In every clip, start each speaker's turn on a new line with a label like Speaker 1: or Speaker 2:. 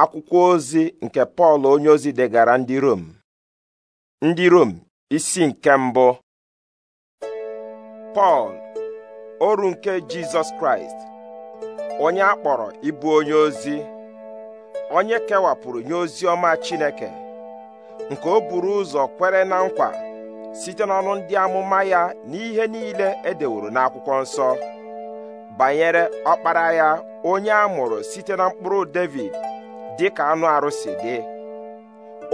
Speaker 1: akwụkwọ ozi nke pọl onyeozi degara ndị rom ndị rom isi nke mbụ pọl oru nke jizọs kraịst onye akpọrọ kpọrọ ịbụ onye ozi onye kewapụrụ nye ozi ọma chineke nke o buru ụzọ kwere na nkwa site n'ọnụ ndị amụma ya na ihe niile edeworo n'akwụkwọ nsọ banyere ọkpara ya onye a mụrụ site na mkpụrụ david dị ka anụ arụsị dị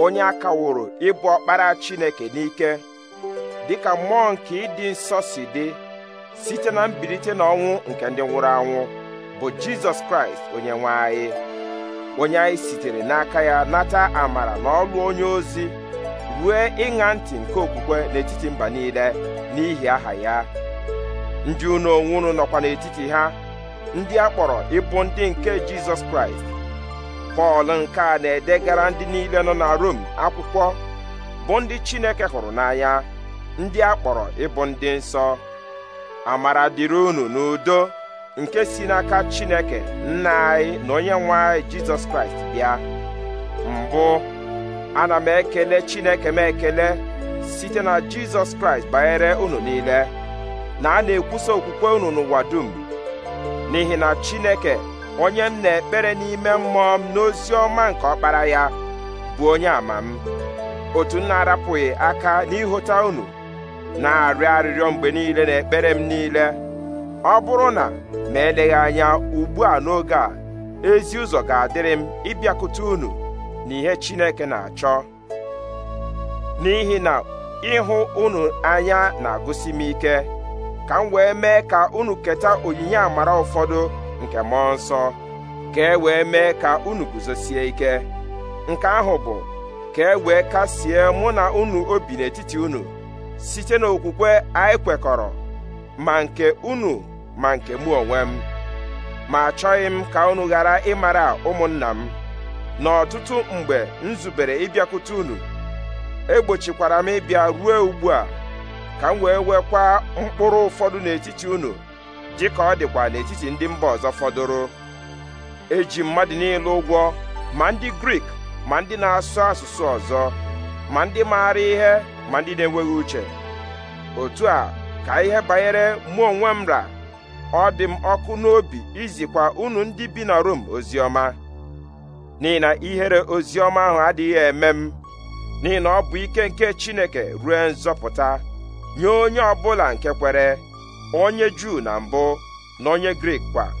Speaker 1: onye a kaworo ịbụ ọkpara Chineke n'ike dị ka mmụọ nke ịdị nsọ si dị site na mbilite n'ọnwụ nke ndị nwụrụ anwụ bụ Jizọs Kraịst onye nwe anyị onye anyị sitere n'aka ya nata amara na ọlụ onye ozi rue ịṅa ntị nke okwukwe n'etiti mba niile n'ihi aha ya ndị unu onwe nọkwa n'etiti ha ndị a kpọrọ ịbụ ndị nke Jizọs Kraịst pọl nke a na-edegara ndị niile nọ na rom akwụkwọ bụ ndị chineke hụrụ n'anya ndị a kpọrọ ịbụ ndị nsọ amara dịrị unu n'udo nke si n'aka chineke nna anyị na onye nwe anyị jizọs kraịst bịa mbụ ana m ekele chineke m ekele site na jizọs kraịst banyere unu niile na a na-ekwusa okwukwe unu n'ụwa dum n'ihi na chineke onye m na-ekpere n'ime mmụọ m n'ozi ọma nke ọkpara ya bụ onye ama m otu m na-arapụghị aka n'ịhụta unu na-arịọ arịrịọ mgbe niile na ekpere m niile ọ bụrụ na ma eleghị anya ugbu a n'oge a ezi ụzọ ga-adịrị m ịbịakwute unu na ihe Chineke na-achọ n'ihi na ịhụ unu anya na-agụsi m ike ka m wee mee ka unu keta onyinye amara ụfọdụ nke mmụọ nsọ ka e wee mee ka unu guzosie ike nke ahụ bụ ka e wee kasie mụ na unu obi n'etiti unu site n'okwukwe anyị kwekọrọ ma nke unu ma nke mụ onwe m ma achọghị m ka unu ghara ịmara ụmụnna m n'ọtụtụ mgbe m zubere ịbịakwute unu egbochikwara m ịbịa ruo ugbu a ka m wee wekwa mkpụrụ ụfọdụ n'etiti unu dị ka ọ dịkwa n'etiti ndị mba ọzọ fọdụrụ eji mmadụ niile ụgwọ ma ndị grik ma ndị na-asụ asụsụ ọzọ ma ndị maara ihe ma ndị na-enweghị uche otu a ka ihe banyere mụ onwe m ra ọ dị m ọkụ n'obi izikwa unu ndị bi na Rom oziọma n'ihi na ihere oziọma ahụ adịghị eme m n'ihi na ọ bụ ike nke Chineke ruo nzọpụta nye onye ọ bụla nke kwere onye juu na mbụ na onye grik kwa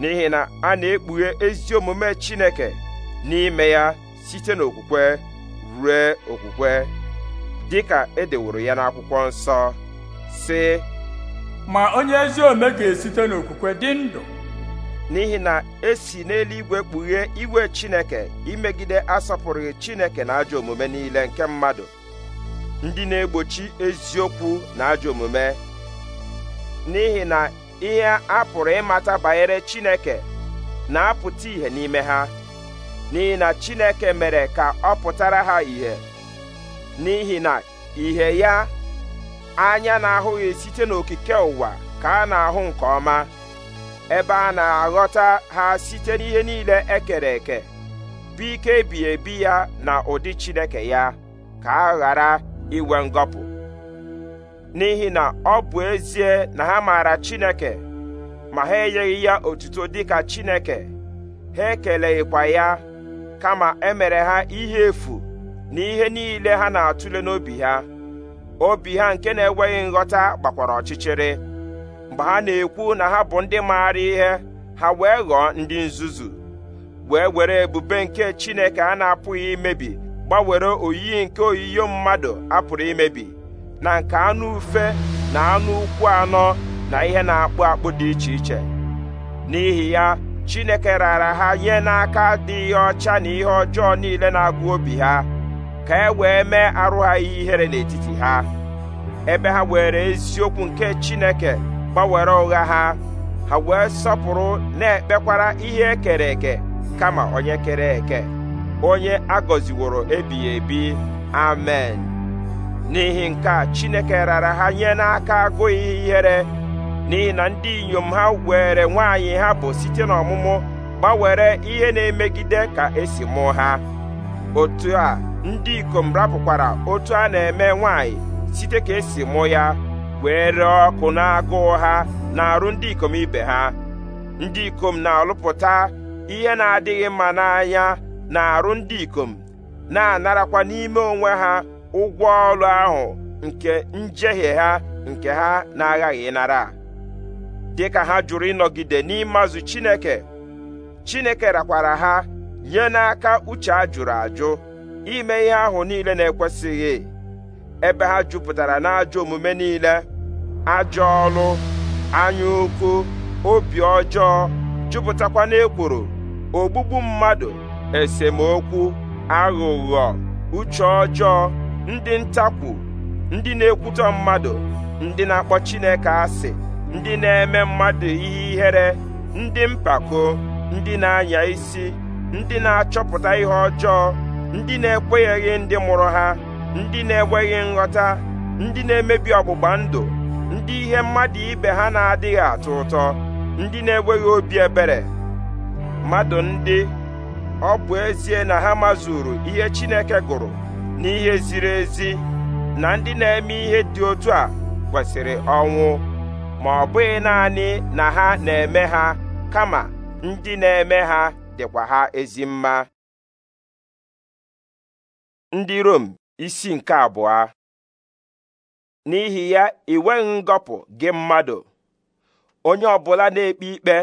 Speaker 1: n'ihi na a na-ekpughe ezi omume chineke n'ime ya site n'okwukwe rue okwukwe dị ka edeworo ya n'akwụkwọ nsọ sị ma onye ezi omume ga-esite n'okwukwe dị ndụ n'ihi na esi n'eluigwe kpughe igwe chineke imegide asọpụrụghị chineke na ajọ omume niile nke mmadụ ndị na-egbochi eziokwu na ajọ omume n'ihi na ihe a pụrụ ịmata banyere Chineke na-apụta ìhè n'ime ha n'ihi na Chineke mere ka ọ pụtara ha ìhè n'ihi na ìhè ya anya na-ahụghị site n'okike ụwa ka a na-ahụ nke ọma ebe a na-aghọta ha site n'ihe niile ekere eke bụ ike ebighị ebi ya na ụdị Chineke ya ka a ghara inwe ngọpụ n'ihi na ọ bụ ezie na ha maara Chineke ma ha enyeghị ya otuto dịka Chineke ha ekeleghịkwa ya kama emere ha ihe efu na ihe niile ha na-atụle n'obi ha obi ha nke na-enweghị nghọta gbakwara ọchịchịrị mgbe ha na-ekwu na ha bụ ndị maara ihe ha wee ghọọ ndị nzuzu wee were ebube nke Chineke a na-apụghị imebi gbanwere oyiyi nke oyiyo mmadụ apụrụ imebi na nke anụ ufe na anụ ụkwụ anọ na ihe na-akpụ akpụ dị iche iche n'ihi ya Chineke raara ha nye n'aka ihe ọcha na ihe ọjọọ niile na-agụ obi ha ka e wee mee arụ ha ihere n'etiti ha ebe ha were eziokwu nke Chineke gbanwere ụgha ha ha wee sọpụrụ na-ekpekwara ihe ekere eke kama onye kere eke onye agọziworo ebighị ebi amen n'ihi nke a chineke rara ha nye n'aka agụghị ihere n'ihi na ndị inyom ha were nwaanyị ha bụ site n'ọmụmụ gbanwere ihe na-emegide ka esi mụ ha otu a ndị ikom rapụkwara otu a na-eme nwaanyị site ka esi mụ ya wee ree ọkụ na-agụụ ha na-arụ ndị ikom ibe ha ndị ikom na-alụpụta ihe na-adịghị mma n'anya na-arụ ndị ikom na-anarakwa n'ime onwe ha ụgwọ ọrụ ahụ nke njehie ha nke ha na-aghaghị ịnara dịka ha jụrụ ịnọgide n'ịmazụ Chineke Chineke rakwara ha nye n'aka uche a jụrụ ajụ ime ihe ahụ niile na-ekwesịghị ebe ha jupụtara n'ajọ omume niile ajọ ọrụ anya ukwu obi ọjọọ jupụtakwa n'ekworo ogbugbu mmadụ esemokwu aghụghọ uche ọjọọ ndị ntakwu ndị na-ekwutọ mmadụ ndị na-akpọ Chineke asị ndị na-eme mmadụ ihe ihere ndị mpako ndị na-anya isi ndị na-achọpụta ihe ọjọọ ndị na-ekwenyeghị ndị mụrụ ha ndị na-enweghị nghọta ndị na-emebi ọgbụgba ndụ ndị ihe mmadụ ibe ha na-adịghị atọ ụtọ ndị na-enweghị obi ebere mmadụ ndị ọ bụ ezie na ha mazuru ihe Chineke gụrụ n'ihe ziri ezi na ndị na-eme ihe dị otu a kwesịrị ọnwụ ma ọ bụghị naanị na ha na-eme ha kama ndị na-eme ha dịkwa ha ezi mma ndị Rom isi nke abụọ n'ihi ya iweghị ngọpụ gị mmadụ onye ọ bụla na-ekpe ikpe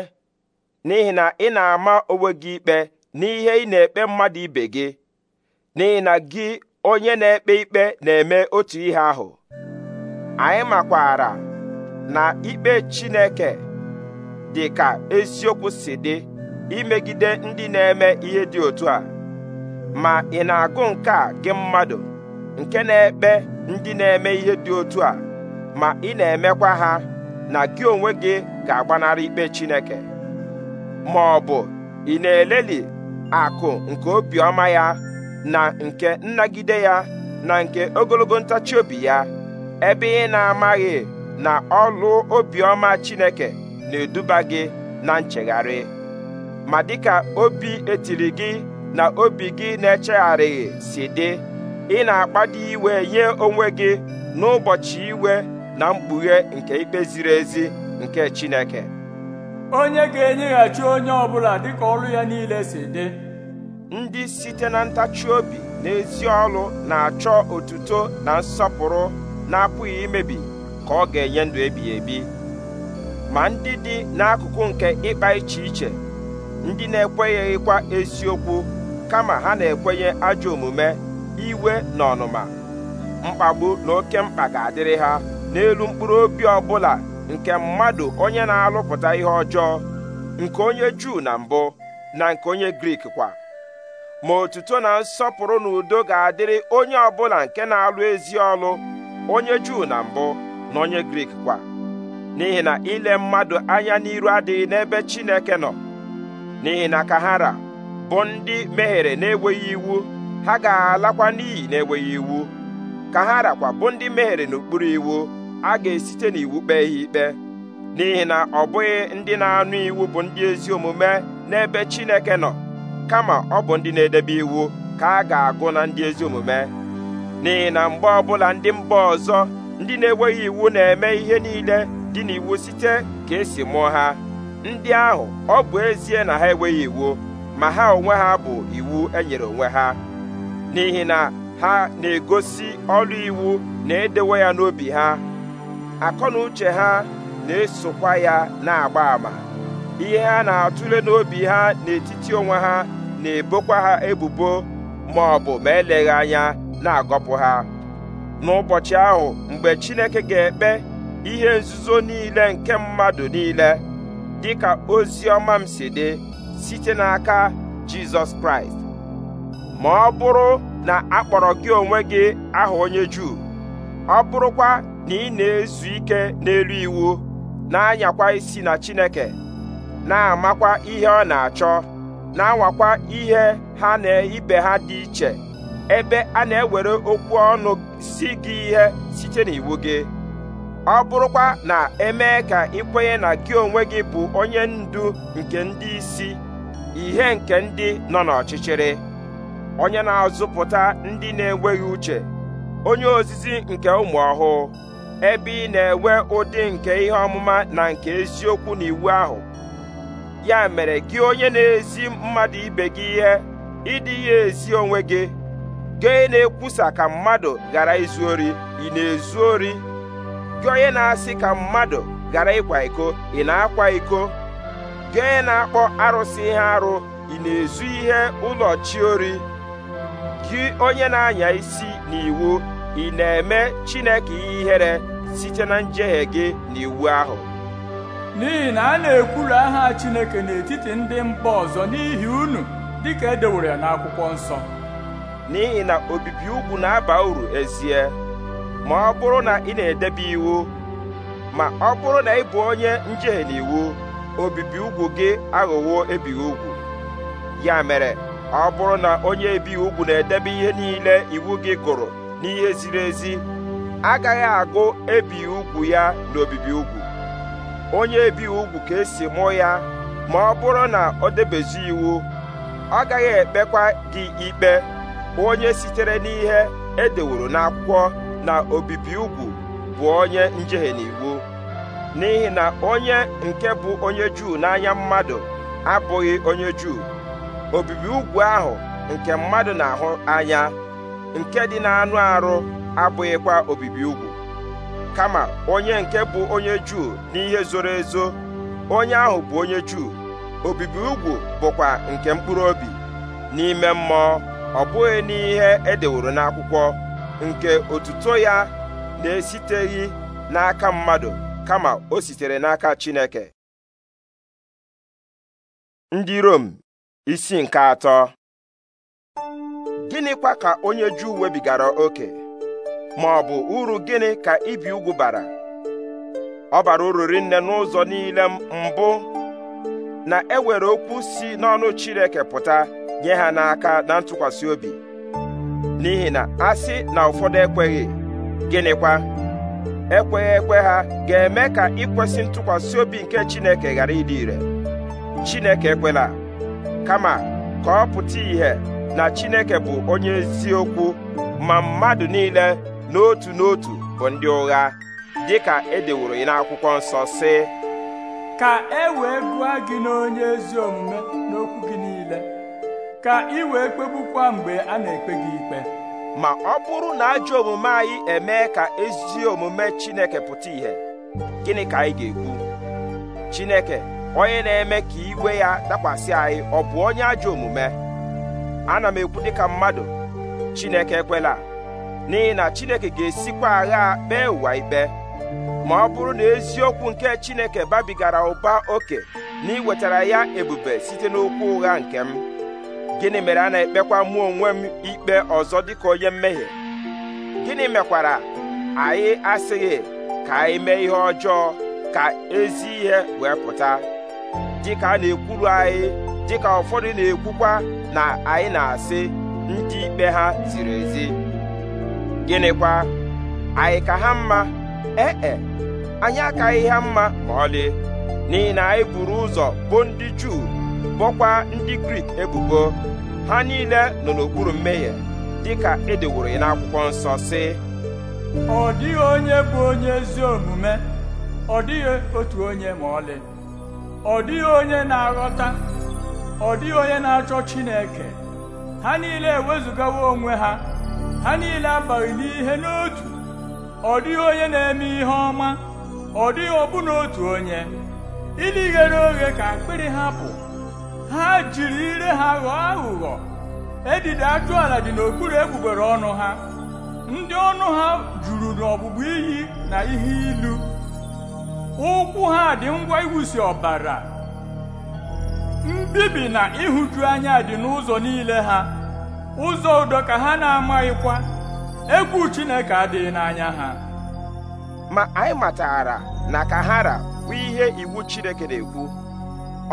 Speaker 1: n'ihi na ị na-ama onwe gị ikpe n'ihe ị na-ekpe mmadụ ibe gị n'ihi na gị onye na-ekpe ikpe na-eme otu ihe ahụ anyị makwara na ikpe Chineke dị ka eziokwu si dị imegide ndị na-eme ihe dị otu a ma ị na-agụ nke a gị mmadụ nke na-ekpe ndị na-eme ihe dị otu a ma ị na-emekwa ha na gị onwe gị ga-agbanarị ikpe Chineke ma ọ bụ ị na-eleli akụ nke obiọma ya na nke nnagide ya na nke ogologo ntachi obi ya ebe ị na-amaghị na ọlụ obiọma Chineke na-eduba gị na nchegharị ma dịka obi etiri gị na obi gị na-echegharịghị si dị ị na-akpado iwe nye onwe gị n'ụbọchị iwe na mkpughe nke ikpe ziri ezi nke Chineke onye ga-enyeghachi onye ọbụla dịka ọrụ ya niile si dị ndị site na ntachi obi na ezi na-achọ otuto na nsọpụrụ na-apụghị imebi ka ọ ga-enye ndụ ebighị ebi ma ndị dị n'akụkụ nke ịkpa iche iche ndị na-ekwenyeghịkwa eziokwu kama ha na-ekwenye ajọ omume iwe na ọnụma mkpagbu na oke mkpa ga-adịrị ha n'elu mkpụrụ obi ọbụla nke mmadụ onye na-alụpụta ihe ọjọọ nke onye Juu na mbụ na nke onye Grik kwa ma otuto na nsọpụrụ na udo ga-adịrị onye ọbụla nke na-alụ ezi ọlụ onye juu na mbụ na onye grik kwa n'ihi na ile mmadụ anya n'iru adịghị n'ebe chineke nọ n'ihi na ka bụ ndị mehiere na-enweghị iwu ha ga-alakwa n'iyi na-enweghị iwu ka ha rakwa bụ ndị mehiere n'okpuru iwu a ga-esite n'iwu kpee ihe ikpe n'ihi na ọ bụghị ndị na-anụ iwu bụ ndị ezi omume n'ebe chineke nọ kama ọ bụ ndị na-edebe iwu ka a ga-agụ na ndị ezi omume n'ihi na mgbe ọbụla ndị mba ọzọ ndị na-enweghị iwu na-eme ihe niile dị n'iwu site ka esi mụọ ha ndị ahụ ọ bụ ezie na ha enweghị iwu ma ha onwe ha bụ iwu enyere onwe ha n'ihi na ha na-egosi ọrụ iwu na-edewe ya n'obi ha akọ na uche ha na-esokwa ya na-agba àmà ihe ha na-atụle n'obi ha n'etiti onwe ha na-ebokwa ha ebubo ma ọ bụ ma eleghị anya na-agọpụ ha n'ụbọchị ahụ mgbe Chineke ga-ekpe ihe nzuzo niile nke mmadụ niile dị ka ozi ọma m si dị site n'aka Jizọs Kraịst ma ọ bụrụ na akpọrọ gị onwe gị aha onye Juu ọ bụrụkwa na ị na-ezu ike n'elu iwu na-anyakwa isi na Chineke na-amakwa ihe ọ na-achọ na-anwakwa ihe ha na ibe ha dị iche ebe a na-ewere okwu ọnụ si gị ihe site n'iwu gị ọ bụrụkwa na emee ka ịkwenye na gị onwe gị bụ onye ndu nke ndị isi ihe nke ndị nọ n'ọchịchịrị onye na-azụpụta ndị na-enweghị uche onye ozizi nke ụmụ ọhụụ ebe ị na-enwe ụdị nke ihe ọmụma na nke eziokwu n'iwu ahụ ya mere gị onye na-ezi mmadụ ibe gị ihe ịdị ya ezi onwe gị gị na-ekwusa ka mmadụ ghara izu ori ị na-ezu ori gị onye na-asị ka mmadụ ghara ịkwa iko ị na-akwa iko gị na-akpọ arụsị ihe arụ ị na-ezu ihe ụlọ chi ori gị onye na-anya isi n'iwu ị na-eme Chineke ihere site na njehie gị na iwu ahụ
Speaker 2: n'ihi na a na ekwuru aha Chineke n'etiti ndị mba ọzọ n'ihi unu dịka edewere
Speaker 1: ya n'akwụkwọ nsọ n'ihi na obibi ugwu na-aba uru ezie ma ọ bụrụ na ị na-edebe iwu ma ọ bụrụ na ị bụ onye njehie n'iwu obibi ugwu gị aghọwo ebighị ugwu ya mere ọ bụrụ na onye ebighị ugwu na-edebe ihe niile iwu gị gụrụ n'ihe ziri ezi agaghị agụ ebighị ugwu ya n'obibi ugwu onye ebighị ugwu ka esi mụọ ya ma ọ bụrụ na ọ debezi iwu ọ gaghị ekpekwa gị ikpe onye sitere n'ihe edeworo n'akwụkwọ na obibi ugwu bụ onye njehie n'iwu n'ihi na onye nke bụ onye Juu n'anya mmadụ abụghị onye Juu obibi ugwu ahụ nke mmadụ na-ahụ anya nke dị n'anụ arụ abụghịkwa obibi ugwu kama onye nke bụ onye Juu n'ihe zoro ezo onye ahụ bụ onye Juu obibi ugwu bụkwa nke mkpụrụ obi n'ime mmụọ ọ bụghị n'ihe edeworo n'akwụkwọ nke otuto ya na-esiteghị n'aka mmadụ kama o sitere n'aka Chineke
Speaker 3: ndị Rom isi nke atọ
Speaker 1: gịnịkwa ka onye Juu webigara oke ma ọ bụ uru gịnị ka ibi ugwu bara ọ bara uru rinne n'ụzọ niile mbụ na ewere okwu si n'ọnụ Chineke pụta nye ha n'aka na ntụkwasị obi n'ihi na asị na ụfọdụ ekweghị gịnịkwa ekweghị ekwe ha ga-eme ka ịkwesị ntụkwasị obi nke Chineke ghara ịdị ire Chineke ekwela kama ka ọ pụta ìhè na Chineke bụ onye eziokwu ma mmadụ niile n'otu n'otu bụ ndị ụgha ka edeworo ya n'akwụkwọ nsọ sị
Speaker 2: ka e wee gụọ gị n'onye ezi omume n'okwu
Speaker 1: gị niile ka ị wee kpegbukwa mgbe a na-ekpe gị ikpe ma ọ bụrụ na ajọ omume anyị emee ka ezi omume Chineke pụta ìhè gịnị ka anyị ga-ekwu Chineke onye na-eme ka iwe ya dakwasị anyị ọ bụ onye ajọ omume ana m ekwu dịka mmadụ Chineke ekwela n'ihi na chineke ga-esikwa agha kpee ụwa ikpe ma ọ bụrụ na eziokwu nke chineke babigara ụba oke na iwetara ya ebube site n'okwu ụgha nke m gịnị mere a na-ekpekwa mụ onwe m ikpe ọzọ dịka onye mmehie gịnị mekwara anyị asịghị ka anyị mee ihe ọjọọ ka ezi ihe wee pụta dịka a na-ekwuru anyị dịka ụfọdụ na-ekwukwa na anyị na-asị ndị ikpe ha ziri ezi gịnịkwa anyị ka ha mma ee e, anyị akaghị ha mma ma ọlị n'ihi na anyị buru ụzọ bụ ndị Juu bụkwa ndị Grik ebubo ha niile nọ n'okpuru mmehie dịka edeworo ya n'akwụkwọ nsọ sị ọ dịghị onye bụ onye ezi omume ọ dịghị otu onye ma ọlị
Speaker 2: ọ dịghị onye na-aghọta ọ dịghị onye na-achọ Chineke ha niile ewezugawo onwe ha ha niile abaghị n'ihe n'otu ọ dịghị onye na-eme ihe ọma ọ dịghị ọbụna otu onye ili ghere oghe ka akpịrị ha pụ ha jiri ire ha ghọọ aghụghọ edide ajụala dị n'okpuru egbugbere ọnụ ha ndị ọnụ ha juru n'ọgbụgba iyi na ihe ilu ụkwụ ha dị ngwa iwusi ọbara mbibi na ịhụju anya dị n'ụzọ niile ha ụzọ udo ka ha na-amaghịkwa egwu Chineke adịghị n'anya
Speaker 1: ha ma anyị matara na ka hara bụ ihe iwu Chineke na-ekwu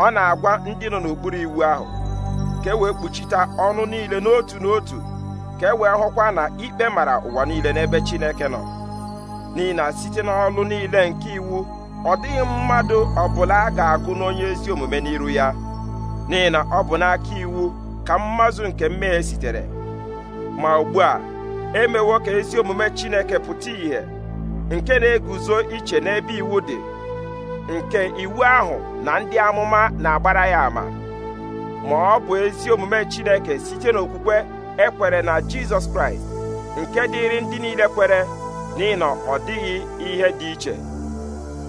Speaker 1: ọ na-agwa ndị nọ n'okpuru iwu ahụ ka e wee kpuchite ọnụ niile n'otu n'otu ka e wee hụkwa na ikpe mara ụwa niile n'ebe Chineke nọ n'ihi na site n'ọlụ niile nke iwu ọ dịghị mmadụ ọbụla a ga-agụ n'onye ezi omume n'iru ya n'ihi na ọ bụ n'aka iwu ka mmazụ nke mmehie sitere ma ugbu a emewo ka ezi omume Chineke pụta ìhè nke na-eguzo iche n'ebe iwu dị nke iwu ahụ na ndị amụma na-agbara ya ama ma ọ bụ ezi omume Chineke site n'okwukwe ekwere na Jizọs Kraịst nke dịịrị ndị niile kwere n'ihi ọ dịghị ihe dị iche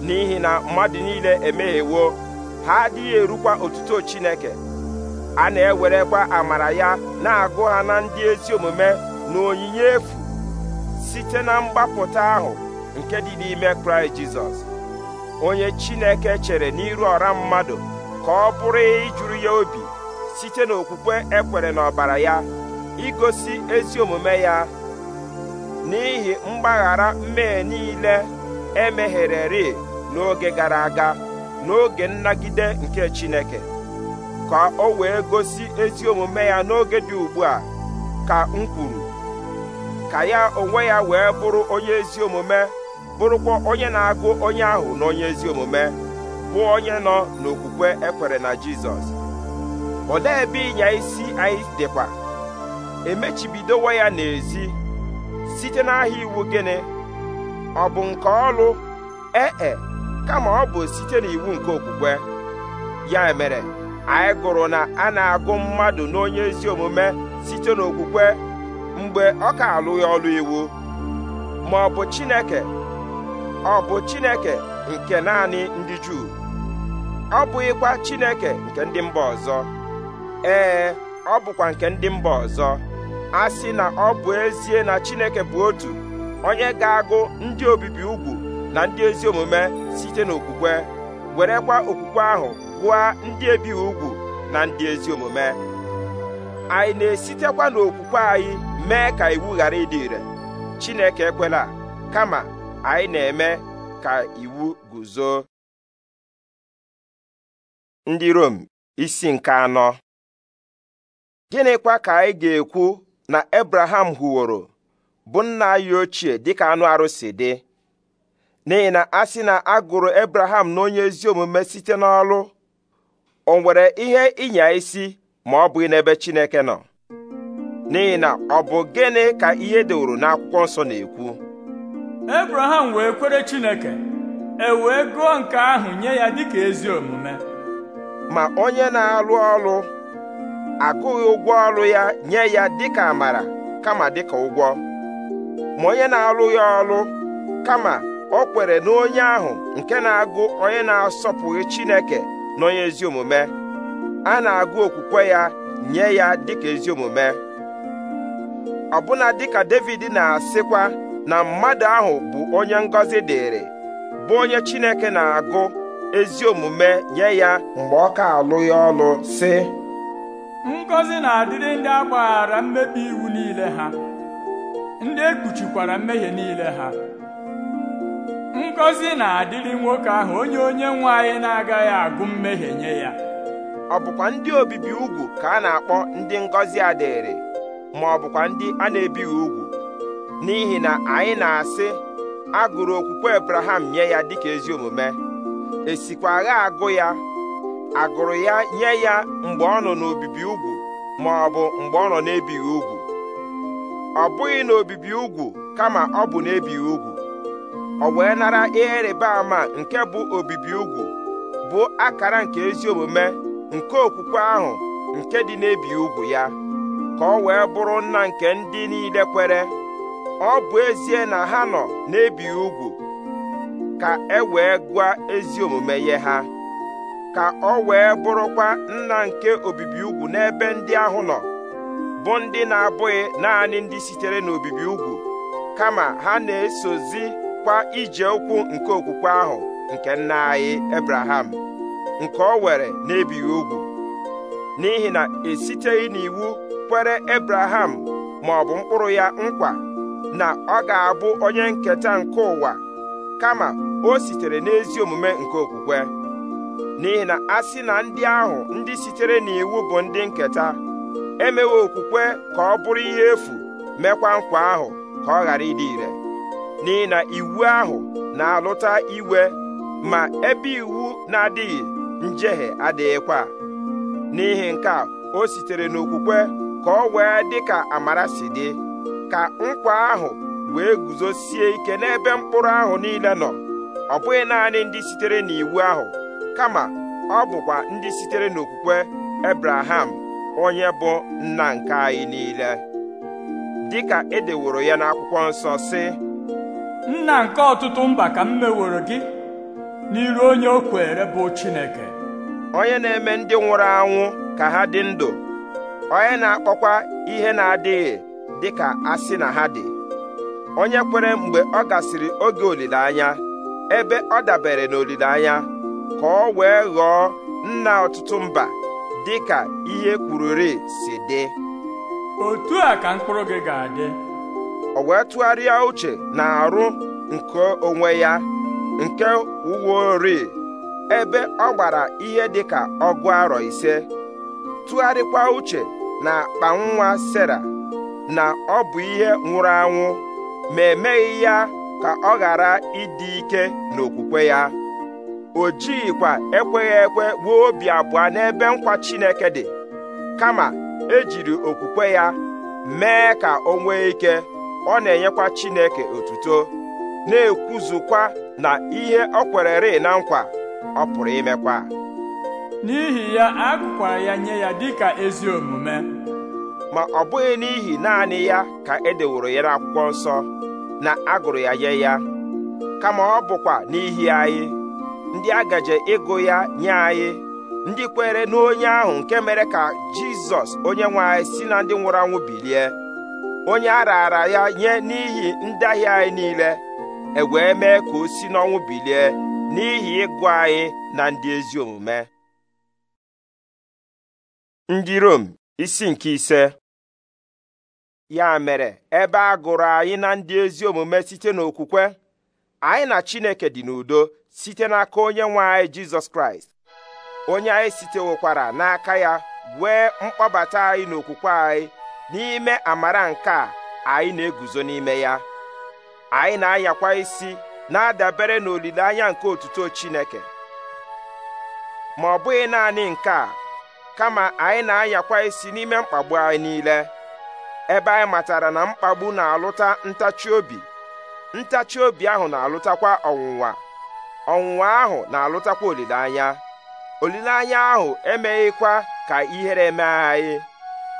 Speaker 1: n'ihi na mmadụ niile emeghewo ha adịghị erukwa otuto Chineke a na-ewerekwa amara ya na-agụ ha na ndị ezi omume na onyinye efu site na mgbapụta ahụ nke dị n'ime kraịst jizọs onye chineke chere n'iru ọra mmadụ ka ọ bụrụ ijuru ya obi site n'okwukwe ekwere n'ọbara ya igosi ezi omume ya n'ihi mgbaghara mmehie niile emeghereri n'oge gara aga n'oge nnagide nke chineke ka o wee gosi ezi omume ya n'oge dị ugbu a ka m kwuru ka ya onwe ya wee bụrụ onye ezi omume bụrụkwa onye na-agụ onye ahụ na onye ezi omume bụ onye nọ n'okwukwe ekwere na Jizọs olee ebe ịnya isi anyị dịkwa emechibidowo ya n'ezi site n'ahịa iwu gịnị ọ bụ nke ọlụ ee e, kama ọ bụ site n'iwu nke okwukwe ya mere anyị gụrụ na a na-agụ mmadụ n'onye ezi omume site n'okwukwe mgbe ọ ka alụghị ọlụ iwu ma ọ bụ Chineke ọ bụ Chineke nke naanị ndị Juu ọ bụghịkwa Chineke nke ndị mba ọzọ ee ọ bụkwa nke ndị mba ọzọ a sị na ọ bụ ezie na Chineke bụ otu onye ga-agụ ndị obibi ugwu na ndị ezi omume site n'okwukwe werekwa okwukwe ahụ gwa ndị ebighị ugwu na ndị ezi omume anyị na-esitekwa n'okwukwe anyị mee ka iwu ghara ịdị ire Chineke ekwela kama anyị na-eme ka iwu guzo ndị Rom isi nke anọ gịnịkwa ka anyị ga-ekwu na Abraham hụworo bụ nna anyị ochie dịka anụ arụsị dị n'ihi na a sị na a gụrụ Abraham na onye ezi omume site n'ọlụ o nwere ihe ịnya isi ma ọ bụghị n'ebe Chineke nọ n'ihi na ọ bụ gịnị ka ihe deworo n'akwụkwọ nsọ na-ekwu
Speaker 2: Abraham wee kwere Chineke e wee gụọ nke ahụ nye ya dịka ezi
Speaker 1: omume ma onye na-alụ ọrụ agụghị ụgwọ ọrụ ya nye ya dịka amara kama dịka ụgwọ ma onye na-alụghị ọrụ kama o kwere na onye ahụ nke na-agụ onye na-asọpụghị Chineke na onye ezi omume a na-agụ okwukwe ya nye ya dịka ezi omume ọbụna dịka David na-asịkwa na mmadụ ahụ bụ onye ngọzi dịrị bụ onye Chineke na-agụ ezi omume nye ya mgbe ọ ka alụ ya ọlụ sị ngọzi na-adịrị ndị
Speaker 2: agbaghara mmebi iwu niile ha ndị ekpuchikwara mmehie niile ha
Speaker 1: ngọzi na-adịrị nwoke ahụ onye onye nwe anyị na-agaghị agụ mmehie nye ya ọ bụkwa ndị obibi ugwu ka a na-akpọ ndị ngọzi adịrị ma ọ bụkwa ndị a na-ebighị ugwu n'ihi na anyị na-asị a gụrụ okwukwe Abraham nye ya dịka ezi omume esikwa agha agụ ya agụrụ ya nye ya mgbe ọ nọ n'obibi ugwu ma ọ bụ mgbe ọ nọ n'ebighị ugwu ọ bụghị n'obibi ugwu kama ọ bụ n'ebighị ugwu ọ wee nara ihe ịrịba ama nke bụ obibi ugwu bụ akara nke ezi omume nke okwukwe ahụ nke dị n'ebi ugwu ya ka ọ wee bụrụ nna nke ndị niile kwere ọ bụ ezie na ha nọ n'ebi ugwu ka e wee gwa ezi omume ye ha ka ọ wee bụrụkwa nna nke obibi ugwu n'ebe ndị ahụ nọ bụ ndị na-abụghị naanị ndị sitere n'obibi ugwu kama ha na-esozi sokwa ije ụkwụ nke okwukwe ahụ nke nna anyị Ebraham nke o were n'ebighị ugwu n'ihi na esiteghị n'iwu kwere Ebraham ma ọ bụ mkpụrụ ya nkwa na ọ ga-abụ onye nketa nke ụwa kama o sitere n'ezi omume nke okwukwe n'ihi na a sị na ndị ahụ ndị sitere n'iwu bụ ndị nketa emewe okwukwe ka ọ bụrụ ihe efu mekwa nkwa ahụ ka ọ ghara ịdị ire n'ihi na iwu ahụ na-alụta iwe ma ebe iwu na-adịghị njehie adịghịkwa n'ihi nke a o sitere n'okwukwe ka ọ wee dị ka amara si dị ka nkwa ahụ wee guzosie ike n'ebe mkpụrụ ahụ niile nọ ọ bụghị naanị ndị sitere n'iwu ahụ kama ọ bụkwa ndị sitere n'okwukwe Ebraham onye bụ nna nke anyị niile dịka edeworo ya n'akwụkwọ nsọ si. nna nke ọtụtụ mba ka m meworo gị n'iru onye o kwere bụ Chineke onye na-eme ndị nwụrụ anwụ ka ha dị ndụ onye na-akpọkwa ihe na-adịghị dị ka asị na ha dị onye kwere mgbe ọ gasịrị oge olileanya ebe ọ dabere n'olileanya ka ọ wee ghọọ nna ọtụtụ mba dị ka ihe kwururi si dị otu a ka mkpụrụ gị ga-adị o wee tụgharịa uche na arụ nke onwe ya nke ori ebe ọ gbara ihe dịka ọgụ arọ ise tụgharịkwa uche na akpa nwa Sera na ọ bụ ihe nwụrụ anwụ ma emeghị ya ka ọ ghara ịdị ike n'okwukwe ya o jighịkwa ekweghị ekwe gbuo obi abụọ n'ebe nkwa Chineke dị kama ejiri okwukwe ya mee ka o nwee ike ọ na-enyekwa Chineke otuto na-ekwuzukwa na ihe ọ kwererị na nkwa ọ pụrụ imekwa n'ihi ya a ya nye ya ka ezi omume ma ọ bụghị n'ihi naanị ya ka e deworo ya n'akwụkwọ nsọ na agụrụ ya nye ya kama ọ bụkwa n'ihi anyị ndị agaje ịgụ ya nye anyị ndị kwere n'onye ahụ nke mere ka Jizọs onye nwe anyị si na ndị nwụrụ anwụ bilie onye a raara ya nye n'ihi ndaghị anyị niile ewee mee ka o si n'ọnwụ bilie n'ihi ịgụ anyị na ndị ezi omume ndị Rom isi nke ise ya mere ebe a gụrụ anyị na ndị ezi omume site n'okwukwe anyị na Chineke dị n'udo site n'aka onye nwe anyị Jizọs Kraịst onye anyị sitewokwara n'aka ya wee mkpọbata anyị n'okwukwe anyị n'ime amara nke a anyị na-eguzo n'ime ya anyị na-ayakwa isi na-adabere n'olileanya nke otuto Chineke ma ọ bụghị naanị nke a kama anyị na-ayakwa isi n'ime mkpagbu anyị niile ebe anyị matara na mkpagbu na-alụta ntachi obi ntachi obi ahụ na-alụtakwa ọnwụnwa ọnwụnwa ahụ na-alụtakwa olileanya olileanya ahụ emeghịkwa ka ihere mee anyị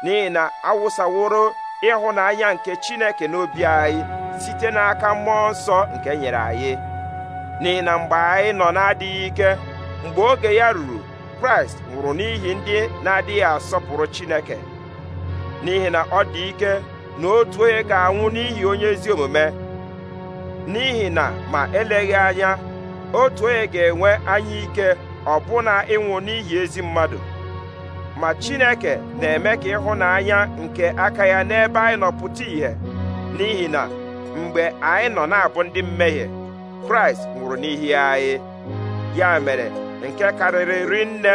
Speaker 1: n'ihi na awụsaworo ịhụnanya nke chineke n'obi anyị site n'aka mmụọ nsọ nke nyere anyị n'ihi na mgbe anyị nọ na-adịghị ike mgbe oge ya ruru kraịst nwụrụ n'ihi ndị na-adịghị asọpụrụ chineke n'ihi na ọ dị ike na otu onye ga-anwụ n'ihi onye ezi omume n'ihi na ma eleghị anya otu onye ga-enwe anya ike ọbụna ịnwụ n'ihi ezi mmadụ ma chineke na-eme ka ịhụnanya nke aka ya n'ebe anyị nọ pụta ìhè n'ihi na mgbe anyị nọ na-abụ ndị mmehie kraịst nwụrụ n'ihi anyị ya mere nke karịrị nne,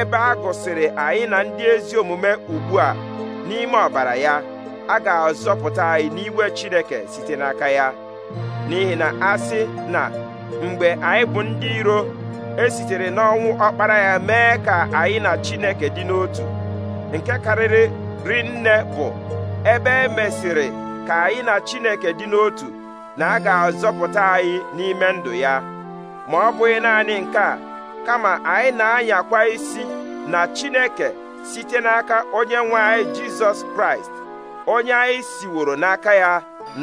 Speaker 1: ebe a gụsịrị anyị na ndị ezi omume ugbu a n'ime ọbara ya a ga-azọpụta anyị n'iwe chineke site n'aka ya n'ihi na a sị na mgbe anyị bụ ndị iro e sitere n'ọnwụ ọkpara ya mee ka anyị na Chineke dị n'otu nke karịrị rinne bụ ebe e mesịrị ka anyị na Chineke dị n'otu na a ga-azọpụta anyị n'ime ndụ ya ma ọ bụghị naanị nke a kama anyị na-anyakwa isi na Chineke site n'aka onye nwe anyị Jizọs Kraịst onye anyị siworo n'aka ya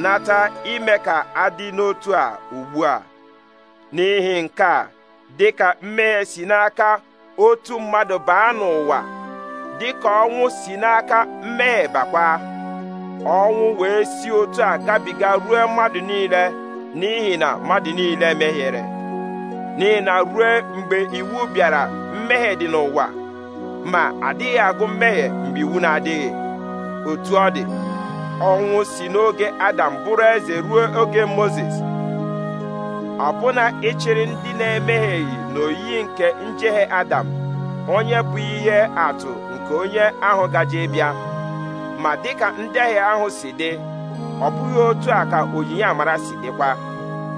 Speaker 1: nata ime ka adị n'otu a ugbu a n'ihi nke a dịka ka mmehie si n'aka otu mmadụ baa n'ụwa dị ka ọnwụ si n'aka mmehie bakwa ọnwụ wee si otu a gabiga ruo mmadụ niile n'ihi na mmadụ niile mehiere n'ihi na ruo mgbe iwu bịara mmehie dị n'ụwa ma adịghị agụ mmehie mgbe iwu na-adịghị otu ọ dị ọnwụ si n'oge Adam bụrụ eze ruo oge moses. ọbụna ịchịrị ndị na-emehieghị n'oyiyi nke njehie Adam onye bụ ihe atụ nke onye ahụ gaje bịa ma dịka ndehie ahụ si dị ọ bụghị otu a ka onyinye amara si dịkwa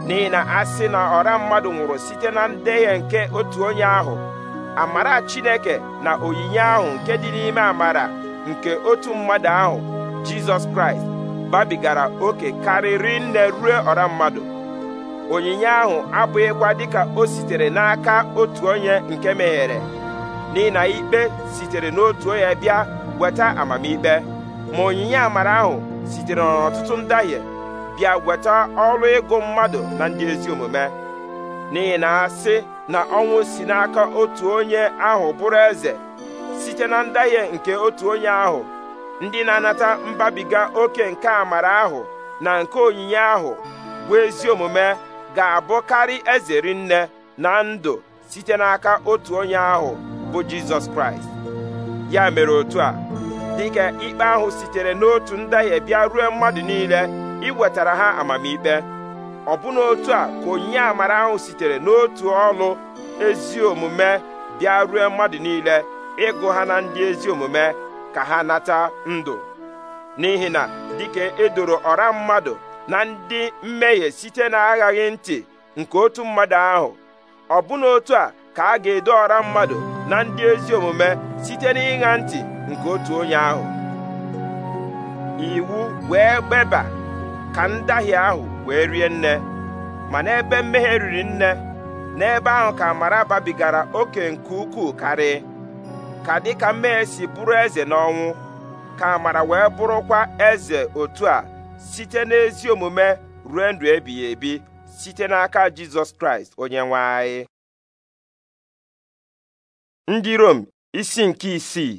Speaker 1: n'ihi na a sị na ọra mmadụ nwụrụ site na ndehie nke otu onye ahụ amara Chineke na onyinye ahụ nke dị n'ime amara nke otu mmadụ ahụ Jizọs Kraịst babigara oke karịrị nne ruo ọra mmadụ onyinye ahụ abụghịkwa dịka o sitere n'aka otu onye nke meghere n'ihi na ikpe sitere n'otu onye bịa weta amamikpe ma onyinye amara ahụ sitere n'ọtụtụ ndahie bịa weta ọrụ ịgụ mmadụ na ndị ezi omume n'ihi na asị na ọnwụ si n'aka otu onye ahụ bụrụ eze site na ndahie nke otu onye ahụ ndị na-anata mbabiga oke nke amara ahụ na nke onyinye ahụ bụ ezi omume ga-abụkarị eze rinne na ndụ site n'aka otu onye ahụ bụ jizọs kraịst ya mere otu a dịka ikpe ahụ sitere n'otu ndahie bịa ruo mmadụ niile iwetara ha amamikpe ọbụna otu a ka onye amara ahụ sitere n'otu ọlụ ezi omume bịa ruo mmadụ niile ịgụ ha na ndị ezi omume ka ha nata ndụ n'ihi na dịka edoro ọra mmadụ na ndị mmehie site na aghaghị ntị nke otu mmadụ ahụ ọbụna otu a ka a ga-edo ọra mmadụ na ndị ezi omume site na ntị nke otu onye ahụ iwu wee gbeba ka ndahie ahụ wee rie nne ma n'ebe mmehie riri nne n'ebe ahụ ka amara babigara oke nke ukwuu karị ka dịka mmehie si bụrụ eze n'ọnwụ ka amara wee bụrụkwa eze otu a site n'ezi omume ruo ndụ ebighị ebi site n'aka jizọs kraịst onye nwe anyị ndị rom isi nke isii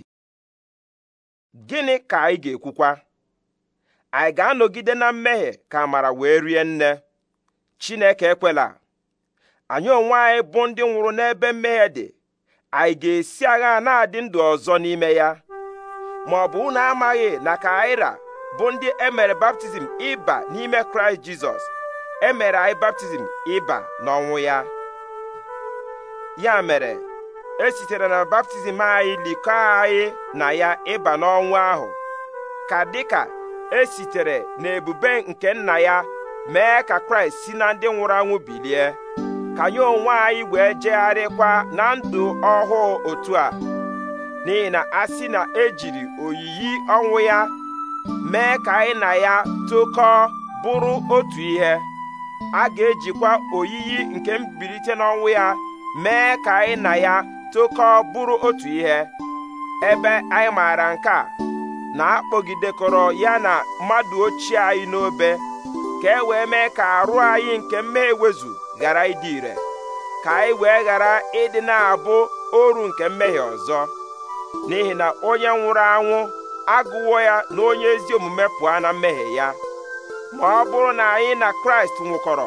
Speaker 1: gịnị ka anyị ga-ekwukwa anyị ga-anọgide na mmehie ka amara wee rie nne chineke ekwela anyị onwe anyị bụ ndị nwụrụ n'ebe mmehie dị anyị ga-esi agha na-adị ndụ ọzọ n'ime ya ma ọ bụ unu amaghị na ka anyị ra bụ ndị e mere baptizim ịba n'ime kraịst jizọs emere anyị baptizim ịba n'ọnwụ ya ya mere e sitere na baptizim anyị likọ anyị na ya ịba n'ọnwụ ahụ ka dịka esitere n'ebube nke nna ya mee ka kraịst si na ndị nwụrụ anwụ bilie ka anyị onwe anyị wee jegharịkwa na ndụ ọhụụ otu a n'ihi na a na ejiri oyiyi ọnwụ ya mee ka anyị na ya tụkọọ bụrụ otu ihe a ga-ejikwa oyiyi nke mbilite n'ọnwụ ya mee ka anyị na ya tụkọọ bụrụ otu ihe ebe anyị maara nke a na-akpọgidekọrọ ya na mmadụ ochie anyị n'obe ka e wee mee ka arụ anyị nke mmehie ewezu ghara ịdị ire ka anyị wee ghara ịdị na-abụ oru nke mmehie ọzọ n'ihi na onye nwụrụ anwụ agụwo ya na onye ezi omume pụọ na mmehie ya ma ọ bụrụ na anyị na kraịst nwụkọrọ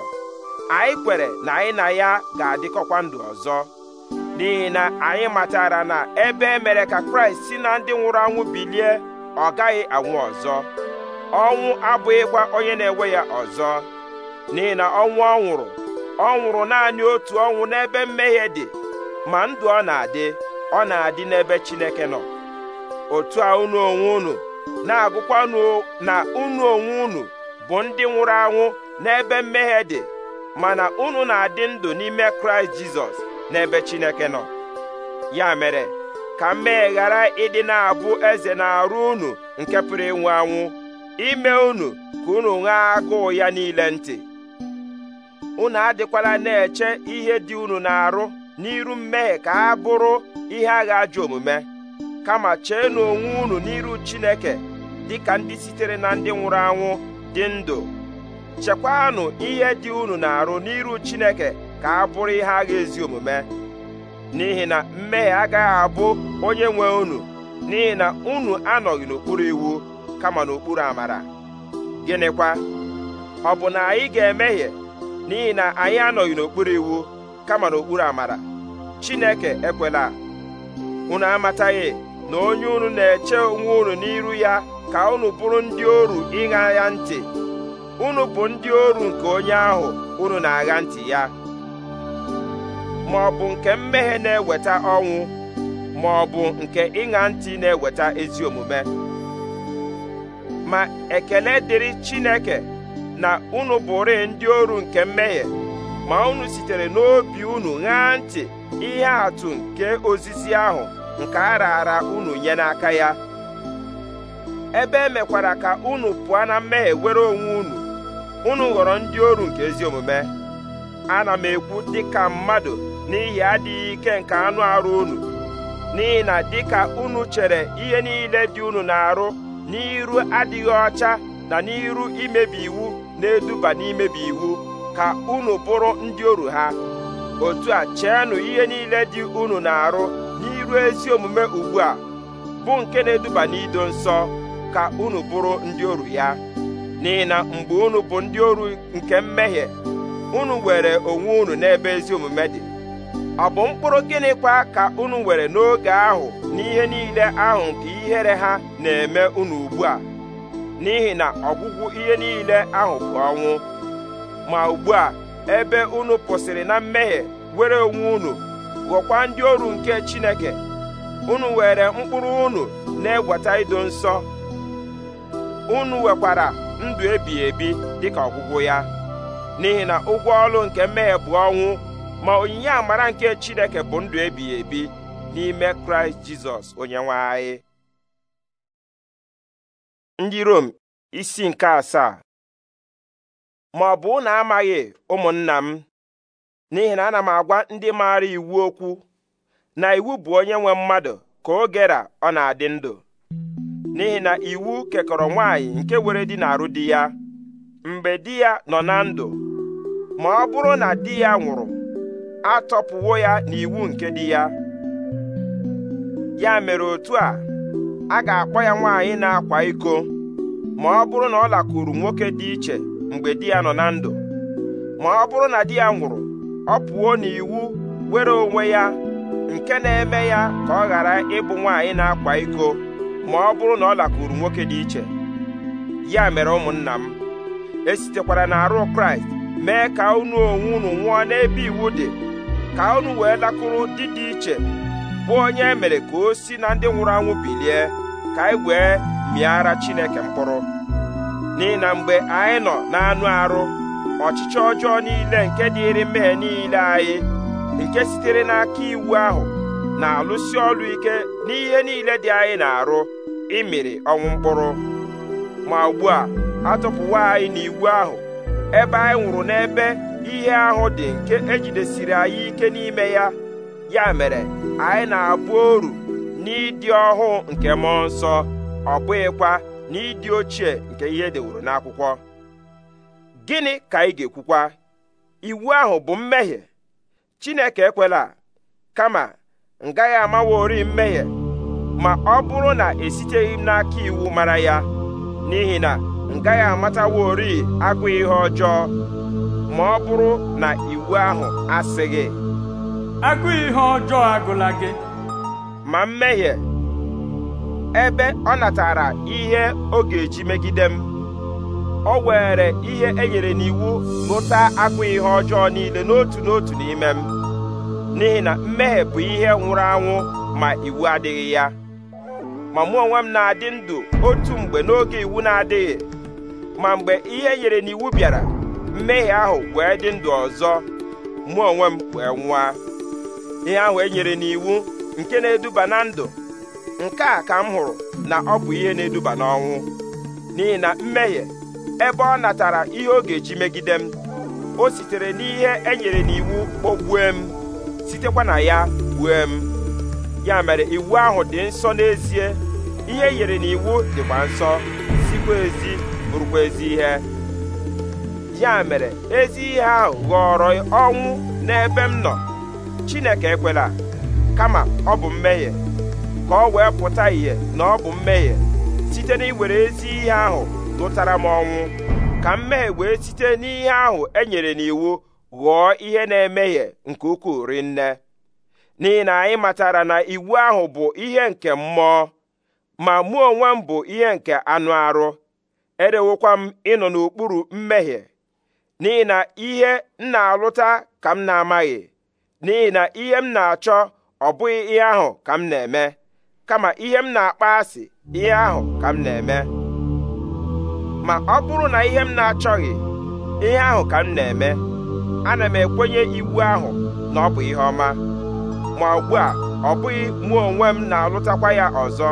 Speaker 1: anyị kwere na anyị na ya ga-adịkọkwa ndụ ọzọ n'ihi na anyị matara na ebe e mere ka kraịst si na ndị nwụrụ anwụ bilie ọ gaghị anwụ ọzọ ọnwụ abụghịkwa onye na-enwe ya ọzọ n'ihi na ọnwụ ọ nwụrụ ọ nwụrụ naanị otu ọnwụ n'ebe mmehie dị ma ndụ ọ na-adị ọ na-adị n'ebe Chineke nọ otu a unu onwe unu na-agụkwanụ na unu onwe unu bụ ndị nwụrụ anwụ n'ebe mmehie dị mana unu na-adị ndụ n'ime kraịst jizọs n'ebe chineke nọ ya mere ka mmehie ghara ịdị na-abụ eze na-arụ unu nke pụrụ ịnwụ anwụ ime unu ka unu ṅaa agụụ ya niile ntị unu adịkwala na-eche ihe dị unu na-arụ n'iru mmehie ka ha bụrụ ihe agha ajọ omume kama cheenụ onwe unu n'iru Chineke dịka ndị sitere na ndị nwụrụ anwụ dị ndụ chekwanụ ihe dị unu na-arụ n'iru Chineke ka a bụrụ ihe agha ezi omume n'ihi na mmehie agaghị abụ onye nwe unu n'ihi na unu anọghị n'okpuru iwu kama n'okpuru amara gịnịkwa ọ bụ na anyị ga-emehie n'ihi na anyị anọghị n'okpuru iwu kama n'okpuru amara Chineke ekwela unu amataghị na onye unu na-eche onwe unu n'iru ya ka unu bụrụ ndị oru ịṅa ya ntị unu bụ ndị oru nke onye ahụ unu na-agha ntị ya ma ọ bụ nke mmehie na-eweta ọnwụ ma ọ bụ nke ịṅa ntị na-eweta ezi omume ma ekele dịrị Chineke na unu bụrị ndị oru nke mmehie ma unu sitere n'obi unu ṅaa ntị ihe atụ nke ozizi ahụ nke a raara unu nye n'aka ya ebe emekwara ka unu pụọ na mmehie were onwe unu unu ghọrọ ndị oru nke ezi omume ana m ekwu dịka mmadụ n'ihi adịghị ike nke anụ arụ unu n'ihi na dịka unu chere ihe niile dị unu na-arụ n'iru adịghị ọcha na n'iru imebi iwu na-eduba n'imebi iwu ka unu bụrụ ndị oru ha otu a cheenụ ihe niile dị unu na-arụ ruo ezi omume ugbu a bụ nke na-eduba n'ido nsọ ka unu bụrụ ndị oru ya n'ihi na mgbe unu bụ ndị oru nke mmehie unu were onwe unu n'ebe ezi omume dị ọ bụ mkpụrụ gịnịkwa ka unu were n'oge ahụ n'ihe niile ahụ nke ihere ha na-eme unu ugbu a n'ihi na ọgwụgwụ ihe niile ahụ bụ ọnwụ ma ugbu a ebe unu kwụsịrị na mmehie were onwe unu gwokwa ndị oru nke Chineke unu were mkpụrụ unu na egweta ido nsọ unu wekwara ndụ ebi ebi dịka ọgwụgwụ ya n'ihi na ụgwọ ọlụ nke mmehie bụ ọnwụ ma onyinye amara nke Chineke bụ ndụ ebighị ebi n'ime Kraịst Jizọs onyenwe anyị ndị Rom isi nke asaa ma ọ bụ amaghị ụmụnna m n'ihi na ana m agwa ndị maara iwu okwu na iwu bụ onye nwe mmadụ ka o ọ na-adị ndụ n'ihi na iwu kekọrọ nwaanyị nke were di na-arụ di ya mgbe di ya nọ na ndụ ma ọ bụrụ na di ya nwụrụ atọpụwo ya n'iwu nke di ya ya mere otu a a ga-akpọ ya nwaanyị na-akwa iko ma ọ bụrụ na ọ lakụrụ nwoke dị iche mgbe di ya nọ na ndụ ma ọ bụrụ na di ya nwụrụ ọ pụọ n'iwu were onwe ya nke na-eme ya ka ọ ghara ịbụ nwaanyị na-akwa iko ma ọ bụrụ na ọ lakụrụ nwoke dị iche ya mere ụmụnna m esitekwara na arụ kraịst mee ka unu onwe unu nwụọ n'ebe iwu dị ka unu wee lakụrụ dị dị iche bụ onye emere mere ka o si na ndị nwụrụ anwụ bilie ka anyị wee mịara chineke mkpụrụ n'ihi na mgbe anyị nọ n'anụ arụ ọchịchị ọjọọ niile nke dịịrị mmehie niile anyị nke sitere n'aka iwu ahụ na-alụsi ọrụ ike n'ihe niile dị anyị na-arụ ịmịrị ọnwụ mkpụrụ ma ugbu a atụpụwa anyị n'iwu ahụ ebe anyị nwụrụ n'ebe ihe ahụ dị nke ejidesiri anyị ike n'ime ya ya mere anyị na-abụ oru n'ịdị ọhụụ nke mmụọ nsọ ọ bụghịkwa n'ịdị ochie nke ihe deworo n'akwụkwọ gịnị ka ị ga-ekwukwa iwu ahụ bụ mmehie Chineke ekwela kama ngaghị gaghị amaworị mmehie ma ọ bụrụ na esiteghị m n'aka iwu mara ya n'ihi na ngaghị amata amataworị agụ ihe ọjọọ ma ọ bụrụ na iwu ahụ asịghị agụ ihe ọjọọ agụla gị ma mmehie ebe ọ natara ihe ọ ga-eji megide m o were ihe e nyere n'iwu ṅụta akpụ ihe ọjọọ niile n'otu n'otu n'ime m n'ihi na mmehie bụ ihe nwụrụ anwụ ma iwu adịghị ya ma mụ onwe m na-adị ndụ otu mgbe n'oge iwu na-adịghị ma mgbe ihe e nyere n'iwu bịara mmehie ahụ wee dị ndụ ọzọ mụ onwe m wee nwụa ihe ahụ e nyere n'iwu nke na-eduba na ndụ nke a ka m hụrụ na ọ bụ ihe na-eduba n'ọnwụ n'ihi na mmehie ebe ọ natara ihe ọ ga-eji megide m o sitere n'ihe e nyere n'iwu kpogbue m sitekwa na ya gbue m ya mere iwu ahụ dị nsọ n'ezie ihe e nyere n'iwu dịkwa nsọ sikwa ezi bụrụkwa ezi ihe ya mere ezi ihe ahụ ghọọrọ ọnwụ n'ebe m nọ Chineke ekwela kama ọ bụ mmehie ka ọ wee pụta ìhè na ọ bụ mmehie site iwere ezi ihe ahụ gụtara m ọnwụ ka mmehie wee site n'ihe ahụ e nyere n'iwu ghọọ ihe na-emehie nke ukwuu rinne n'ihi na anyị matara na iwu ahụ bụ ihe nke mmụọ ma mụ onwe m bụ ihe nke anụ arụ erewokwa m ịnọ n'okpuru mmehie n'ihi na ihe m na-alụta ka m na-amaghị n'ihi na ihe m na-achọ ọ bụghị ihe ahụ ka m na-eme kama ihe m na-akpa asị ihe ahụ ka m na-eme ma ọ bụrụ na ihe m na-achọghị ihe ahụ ka m na-eme ana m ekwenye iwu ahụ na ọ bụ ihe ọma ma ugbu a ọ bụghị mụ onwe m na-alụtakwa ya ọzọ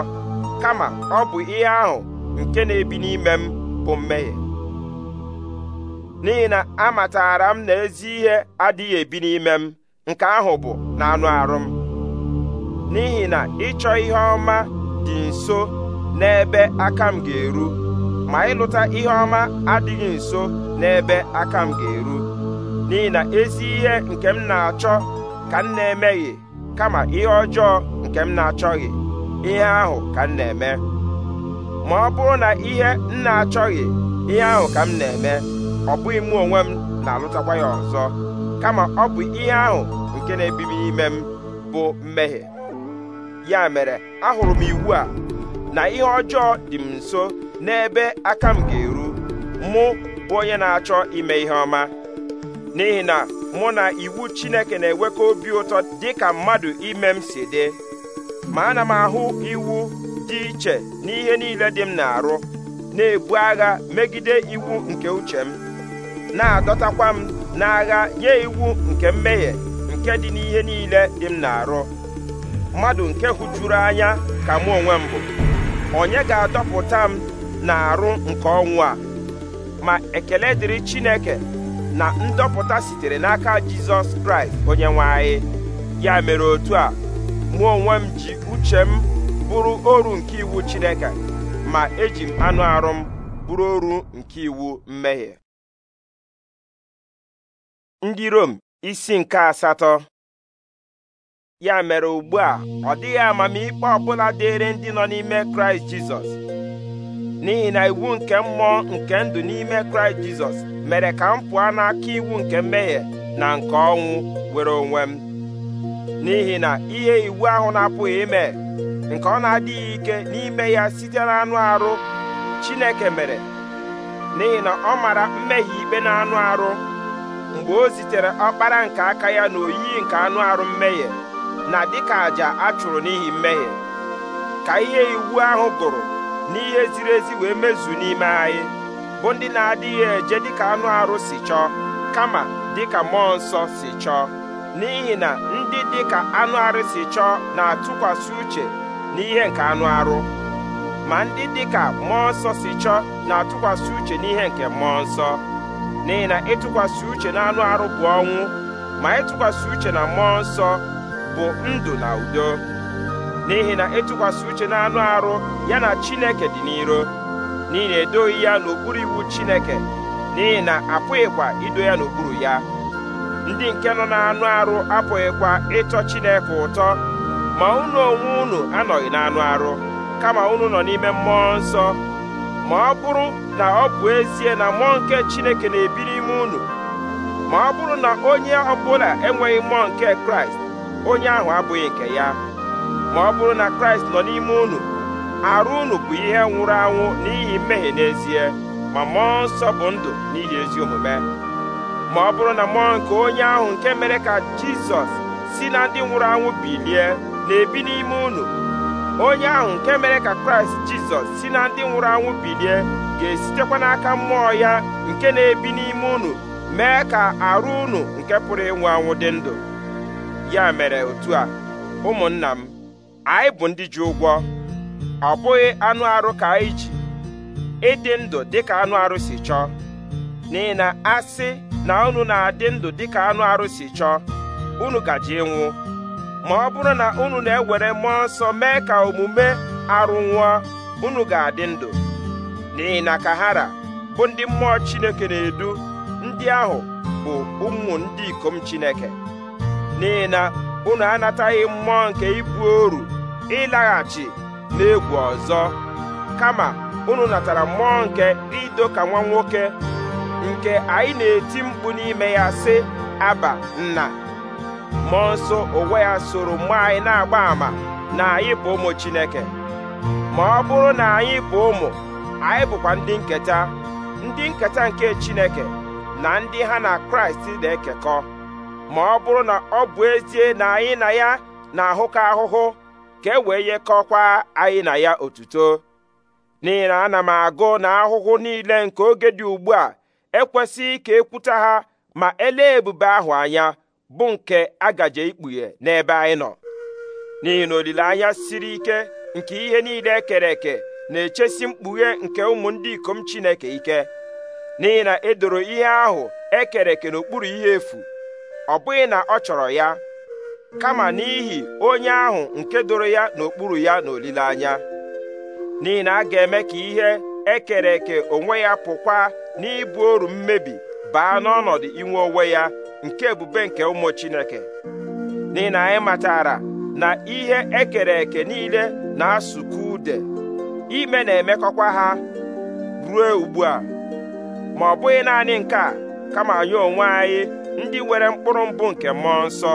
Speaker 1: kama ọ bụ ihe ahụ nke na-ebi n'ime m bụ mmehie n'ihi na amatara m na ezi ihe adịghị ebi n'ime m nke ahụ bụ na anụ arụ m n'ihi na ịchọ ihe ọma dị nso n'ebe aka m ga-eru ma ịlụta ihe ọma adịghị nso n'ebe aka m ga-eru n'ihi na ezi ihe nke m na-achọ ka m na-emeghị kama ihe ọjọọ nke m na-achọghị ihe ahụ ka m na-eme ma ọ bụrụ na ihe m na-achọghị ihe ahụ ka m na-eme ọ bụghị mụ onwe m na-alụtakwa ya ọzọ kama ọ bụ ihe ahụ nke na-ebibi ime m bụ mmehie ya mere ahụrụ m iwu a na ihe ọjọọ dị m nso n'ebe aka m ga-eru mụ bụ onye na-achọ ime ihe ọma n'ihi na mụ na iwu Chineke na-enwekọ obi ụtọ dị ka mmadụ ime m si dị ma ana m ahụ iwu dị iche n'ihe niile dị m na-arụ na-ebu agha megide iwu nke uche m na-adọtakwa m na agha nye iwu nke mmehie nke dị n'ihe niile dị m na-arụ mmadụ nke hụjuru anya ka mụ onwe m onye ga-adọpụta m na-arụ nke ọnwụ a ma ekele dịrị Chineke na ndọpụta sitere n'aka Jizọs Kraịst onye nwe anyị ya mere otu a mụ onwe m ji uche m bụrụ oru nke iwu Chineke ma eji m anụ arụ m bụrụ oru nke iwu mmehie ndị Rom isi nke asatọ ya mere ugbu a ọ dịghị amamikpe ọbụla dịịrị ndị nọ n'ime Kraịst Jizọs n'ihi na iwu nke mmụọ nke ndụ n'ime kraịst jizọs mere ka m pụọ n'aka iwu nke mmehie na nke ọnwụ were onwe m n'ihi na ihe iwu ahụ na-apụghị ime nke ọ na-adịghị ike n'ime ya site na anụ arụ chineke mere n'ihi na ọ mara mmehie ikpe na anụ arụ mgbe o zitere ọkpara nke aka ya na nke anụ arụ mmehie na dịka àjà a chụrụ n'ihi mmehie ka ihe iwu ahụ gụrụ n'ihe ziri ezi wee mezu n'ime anyị bụ ndị na-adịghị eje dịka anụ arụ si chọọ kama dịka mmụọ nsọ si chọọ n'ihi na ndị dịka anụ arụ si chọọ na-atụkwasị uche n'ihe nke anụ arụ ma ndị dịka mmụọ nsọ si chọọ na-atụkwasị uche n'ihe nke mmụọ nsọ n'ihi na ịtụkwasị uche na anụ arụ bụ ọnwụ ma ịtụkwasị uche na mmụọ nsọ bụ ndụ na udo n'ihi na ịtụkwasị uche na anụ arụ ya na chineke dị n'iro n'ihi na edoghị ya n'okpuru iwu chineke n'ihi na apụghịkwa ido ya n'okpuru ya ndị nke nọ n'anụ arụ apụghịkwa ịtọ chineke ụtọ ma unu onwe unu anọghị n'anụ arụ kama unu nọ n'ime mmụọ nsọ ma ọ bụrụ na ọ bụ ezie na mmụọ nke chineke na-ebi n'ime unu ma ọ bụrụ na onye ọbụla enweghị mmụọ nke kraịst onye ahụ abụghị nke ya ma ọ bụrụ na kraịst nọ n'ime unu arụ unu bụ ihe nwụrụ anwụ n'ihi mmehie n'ezie ma mmụọ nsọ bụ ndụ n'ihi ezi omume ma ọ bụrụ na mmụọ nke onye ahụ nke mere ka jizọs si na ndị nwụrụ anwụ bilie na-ebi n'ime unu onye ahụ nke mere ka kraịst jizọs si na ndị nwụrụ anwụ bilie ga-esitekwa n'aka mmụọ ya nke na-ebi n'ime unu mee ka arụ unu nke pụrụ ịnwụ anwụ dị ndụ ya mere otu a ụmụnna m anyị bụ ndị ji ụgwọ ọ bụghị anụ arụ ka anyị ji ịdị ndụ ka anụ arụ si chọọ n'ihi na asị na unu na-adị ndụ dịka anụ arụ si chọọ unu gaji ịnwụ ma ọ bụrụ na unu na-ewere mmụọ nsọ mee ka omume arụ nwụọ unu ga-adị ndụ n'ihi na kahara bụ ndị mmụọ Chineke na-edu ndị ahụ bụ ụmụ ndị ikom Chineke n'ihi na unu anataghị mmụọ nke ibu oru ịlaghachi n'egwu ọzọ kama unu natara mmụọ nke ịdọ ka nwa nwoke nke anyị na-eti mkpu n'ime ya sị aba nna mmụọ nsọ onwe ya soro mgbe anyị na-agba ama na anyị bụ ụmụ Chineke ma ọ bụrụ na anyị bụ ụmụ anyị bụkwa ndị nketa ndị nketa nke Chineke na ndị ha na Kraịst na-ekekọ ma ọ bụrụ na ọ bụ ezie na anyị na ya na-ahụkọ ahụhụ ka e wee yekọkwa anyị na ya otuto n'ihi na ana m agụ na ahụhụ niile nke oge dị ugbu a ekwesịghị ka ekwuta ha ma elee ebube ahụ anya bụ nke agaje ikpughe n'ebe anyị nọ n'ihi na olileanya siri ike nke ihe niile ekere eke na-echesi mkpughe nke ụmụ ndị ikom Chineke ike n'ihi na edoro ihe ahụ ekere eke n'okpuru ihe efu ọ bụghị na ọ chọrọ ya kama n'ihi onye ahụ nke doro ya n'okpuru ya n'olileanya n'ihi na a ga-eme ka ihe ekere eke onwe ya pụkwa n'ibu oru mmebi baa n'ọnọdụ inwe onwe ya nke ebube nke ụmụ Chineke n'ihi na anyị matara na ihe ekere eke niile na-asụkwa ude ime na-emekọkwa ha ruo ugbu a ma ọ bụghị naanị nke a kama anyị onwe anyị ndị nwere mkpụrụ mbụ nke mmụọ nsọ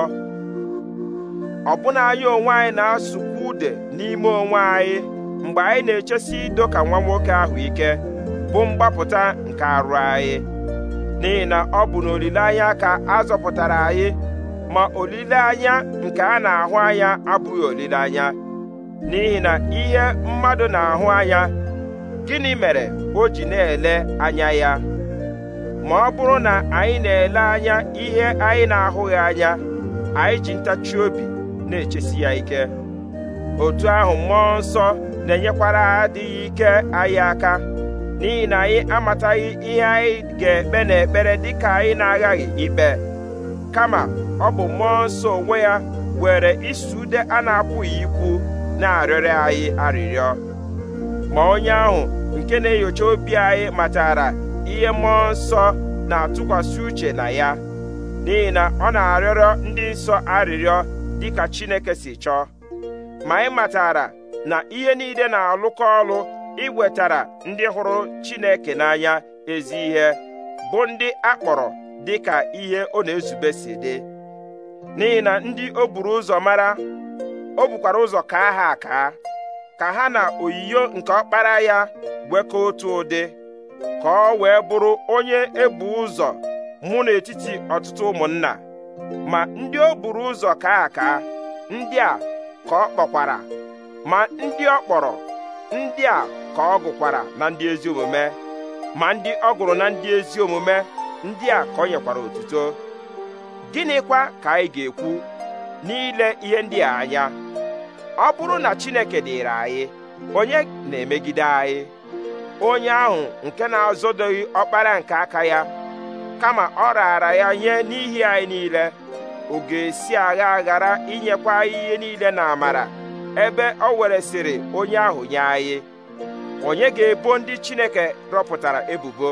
Speaker 1: ọbụna anyị onwe anyị na-asụkwa ude n'ime onwe anyị mgbe anyị na-echesi ido ka nwa nwoke ahụ ike bụ mgbapụta nke arụ anyị n'ihi na ọ bụ n'olileanya ka a zọpụtara anyị ma olileanya nke a na-ahụ anya abụghị olileanya n'ihi na ihe mmadụ na-ahụ anya gịnị mere o ji na-ele anya ya ma ọ bụrụ na anyị na-ele anya ihe anyị na-ahụghị anya anyị ji ntachi obi na-echesi ya ike otu ahụ mmụọ nsọ na-enyekwara adịghị ike anyị aka n'ihi na anyị amataghị ihe anyị ga-ekpe n'ekpere dịka anyị na-aghaghị ikpe kama ọ bụ mmụọ nsọ onwe ya were isi ude a na-apụghị ikwu na-arịọrọ anyị arịrịọ ma onye ahụ nke na-enyocha obi anyị matara ihe mmụọ nsọ na-atụkwasị uche na ya n'ihi na ọ na-arịọrọ ndị nsọ arịrịọ dịka Chineke si chọọ ma ị matara na ihe niile na-alụkọ ọlụ iwetara ndị hụrụ Chineke n'anya ezi ihe bụ ndị akpọrọ dịka ihe ọ na-ezube si dị n'ihi na ndị o buru ụzọ mara o bukwara ụzọ ka ha aka ka ha na oyiyo nke ọkpara ya gwekọọ otu ụdị ka ọ wee bụrụ onye ebu ụzọ mụ n'etiti ọtụtụ ụmụnna ma ndị o buru ụzọ kaa aka ndị a ka ọ kpọkwara ma ndị ọ kpọrọ ndị a ka ọ gụkwara na ndị ezi omume ma ndị ọ gụrụ na ndị ezi omume ndị a ka ọ nyekwara otuto gịnịkwa ka anyị ga-ekwu n'ile ihe ndị a anya ọ bụrụ na Chineke dịịrị anyị onye na-emegide anyị onye ahụ nke na-azọdoghị ọkpara nke aka ya kama ọ raara ya nye n'ihi anyị niile ọ ga-esi agha aghara inyekwa anyị ihe niile na amara ebe ọ weresịrị onye ahụ nye anyị onye ga-ebo ndị Chineke rọpụtara ebubo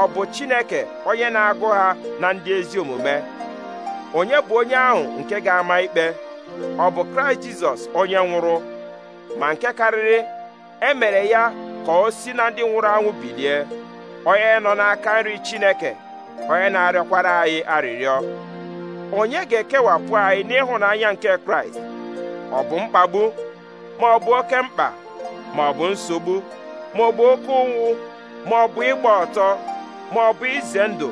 Speaker 1: ọ bụ Chineke onye na-agụ ha na ndị ezi omume onye bụ onye ahụ nke ga-ama ikpe ọ bụ Kraịst Jizọs onye nwụrụ ma nke karịrị e mere ya ka o si na ndị nwụrụ anwụ bilie onye nọ n'aka nri Chineke onye na-arịọkwara anyị arịrịọ onye ga-ekewapụ anyị n'ịhụnanya nke kraịst ọ bụ mkpagbu ma ọ bụ oke mkpa ma ọ bụ nsogbu ma ọ bụ oke ụnwụ ma ọ bụ ịgba ọtọ ma ọ bụ ize ndụ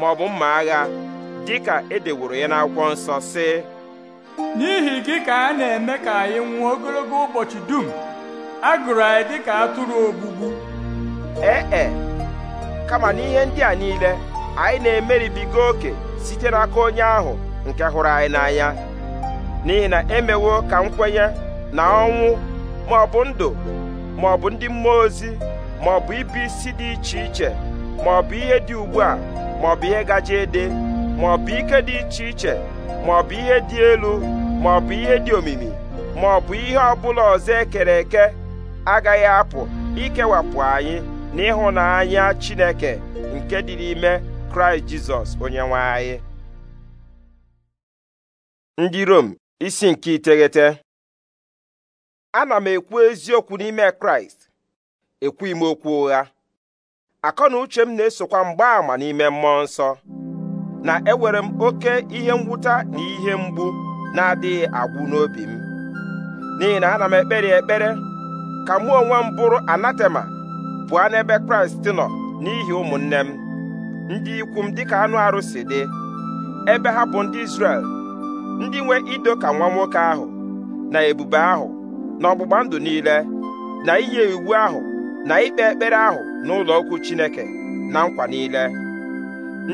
Speaker 1: ma ọ bụ mma agha dịka edeworo ya n'akwụkwọ nsọ sị n'ihi gị ka a na-eme ka anyị nwụọ ogologo ụbọchị dum a gụrụ anyị dịka atụrụ ogbugbu ee e, kama n'ihe ndị a niile anyị na-emeribiga oke site n'aka onye ahụ nke hụrụ anyị n'anya n'ihi na emewo ka nkwenye na ọnwụ ma ọ bụ ndụ ma ọ bụ ndị mmụọ ozi ma ọ bụ ibi isi dị iche iche ma ọ bụ ihe dị ugbu a ma ọ bụ ihe gaji ede ma ọ bụ ike dị iche iche ma ọ bụ ihe dị elu ma ọ bụ ihe dị omimi ma ọ bụ ihe ọbụla ọzọ ekere eke agaghị apụ ikewapụ anyị n'ịhụnanya Chineke nke dị n'ime kraịst jizọs onye nwanyị. ndị rom isi nke iteghete ana m ekwu eziokwu n'ime kraịst ekwughị m okwu ụgha akọ na uche m na-esokwa mgbaàmà n'ime mmụọ nsọ na ewere m oke ihe mwụta na ihe mgbu na-adịghị agwụ n'obi m n'ihi na ana m ekpere ekpere ka mụ onwe m bụrụ anatema pụọ n'ebe kraịst nọ n'ihi ụmụnne m ndị ikwu m dịka anụ arụ dị ebe ha bụ ndị Izrel ndị nwe ido ka nwa nwoke ahụ na ebube ahụ na ọgbụgba ndụ niile na inye iwu ahụ na ikpe ekpere ahụ n'ụlọ okwu Chineke na nkwa niile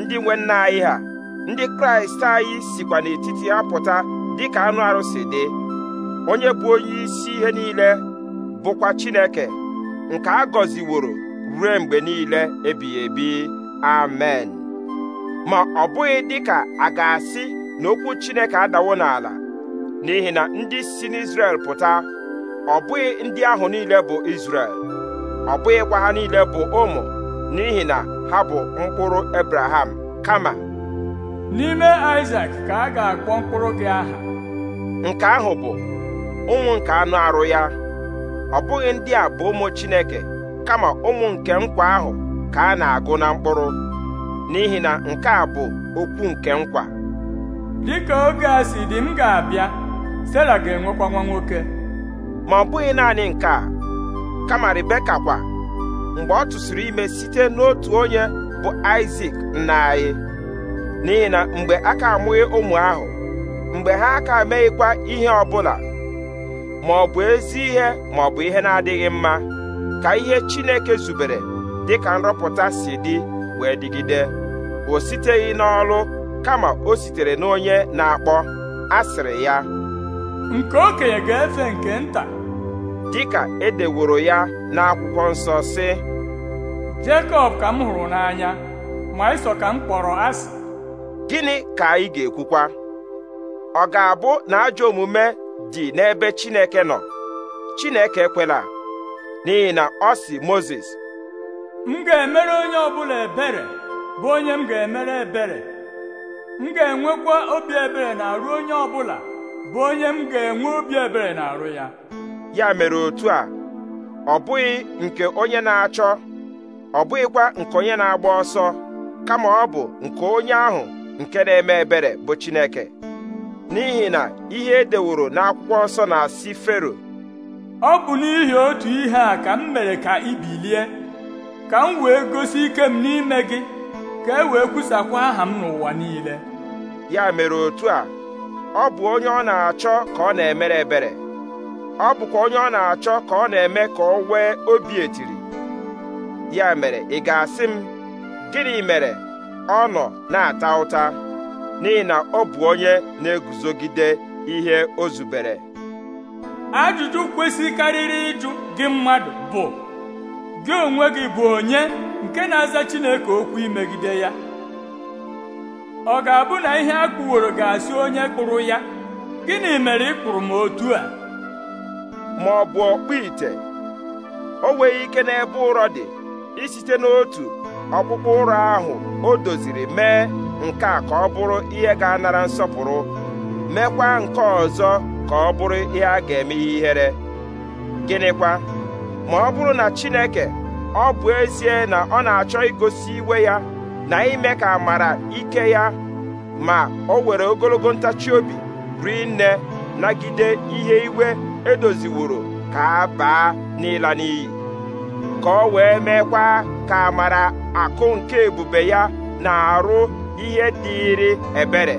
Speaker 1: ndị nwe nna anyị ha ndị Kraịst anyị sikwa n'etiti ha pụta dịka anụ arụ dị onye bụ onye isi ihe niile bụkwa Chineke nke a gọziworo ruo mgbe niile ebighị ebi amen ma ọ bụghị dịka a ga-asị na Chineke adawo n'ala n'ihi na ndị si n'Izrel pụta ọ bụghị ndị ahụ niile bụ Izrel ọ bụghịkwa ha niile bụ ụmụ n'ihi na ha bụ mkpụrụ Ebraham kama n'ime Isak ka a ga-akpọ mkpụrụ gị aha nke ahụ bụ ụmụ nke anụ arụ ya ọ bụghị ndị a bụ ụmụ Chineke kama ụmụ nke nkwa ahụ ka a na-agụ na mkpụrụ n'ihi na nke a bụ okwu nke nkwa Dị ka oge a si dị m ga-abịa Sera ga-enwekwa nwa nwoke ma ọ bụghị naanị nke a kama Rebeka kwa mgbe ọ tụsịrị ime site n'otu onye bụ Isak nna anyị n'ihi na mgbe a ka amụghị ụmụ ahụ mgbe ha aka meghịkwa ihe bụla, ma ọ bụ ezi ihe ma ọ bụ ihe na-adịghị mma ka ihe Chineke zubere dịka nrọpụta si dị wee dịgide o siteghị n'ọlụ kama o sitere n'onye na-akpọ asịrị ya nke okenye ga-efe nke nta dịka edeworo ya n'akwụkwọ nsọ sị Jekọb ka m hụrụ n'anya ma ịsọ ka m kpọrọ asị gịnị ka anyị ga-ekwukwa ọ ga-abụ na ajọ omume dị n'ebe Chineke nọ Chineke kwela n'ihi na ọ sị Mozis m ga-emere onye ọbụla ebere bụ onye m ga-emere ebere
Speaker 2: m ga-enwekwa obi ebere na-arụ onye ọbụla bụ onye m ga-enwe obi ebere na-arụ ya
Speaker 1: ya mere otu a ọ bụghị nke onye na-achọ ọ bụghịkwa nke onye na-agba ọsọ kama ọ bụ nke onye ahụ nke na-eme ebere bụ Chineke n'ihi na ihe edeworo n'akwụkwọ nsọ na-asị Fero ọ bụ n'ihi otu ihe a ka m mere ka ibilie. bilie
Speaker 2: ka m wee gosi ike m n'ime gị ka e wee kwusakwa aha m n'ụwa niile
Speaker 1: ya mere otu a ọ bụ onye ọ na-achọ ka ọ na-emere ebere ọ bụkwa onye ọ na-achọ ka ọ na-eme ka ọ nwee obi etiri ya mere ị ga-asị m gịnị mere ọ nọ na-ata ụta n'ihi na ọ bụ onye na-eguzogide ihe o zubere
Speaker 2: ajụjụ kwesịkarịrị ịjụ gị mmadụ bụ gị onwe gị bụ onye nke na-aza Chineke okwu imegide ya ọ ga-abụ na ihe a kpụworo ga-asị onye kpụrụ ya gịnị mere ị kpụrụ m otu a
Speaker 1: ma ọ bụ ọkpụ ite o nweghị ike n'ebe ụrọ dị isite n'otu ọkpụkpụ ụrọ ahụ o doziri mee nke a ka ọ bụrụ ihe ga-anara nsọpụrụ meekwa nke ọzọ ka ọ bụrụ ihe a ga-eme ihere gịnịkwa ma ọ bụrụ na Chineke ọ bụ ezie na ọ na-achọ igosi iwe ya na ime ka amara ike ya ma o were ogologo ntachi obi rinne nne nagide ihe iwe edoziworo ka a baa n'ịla n'iyi ka ọ wee meekwa ka amara akụ nke ebube ya na-arụ ihe dịịrị ebere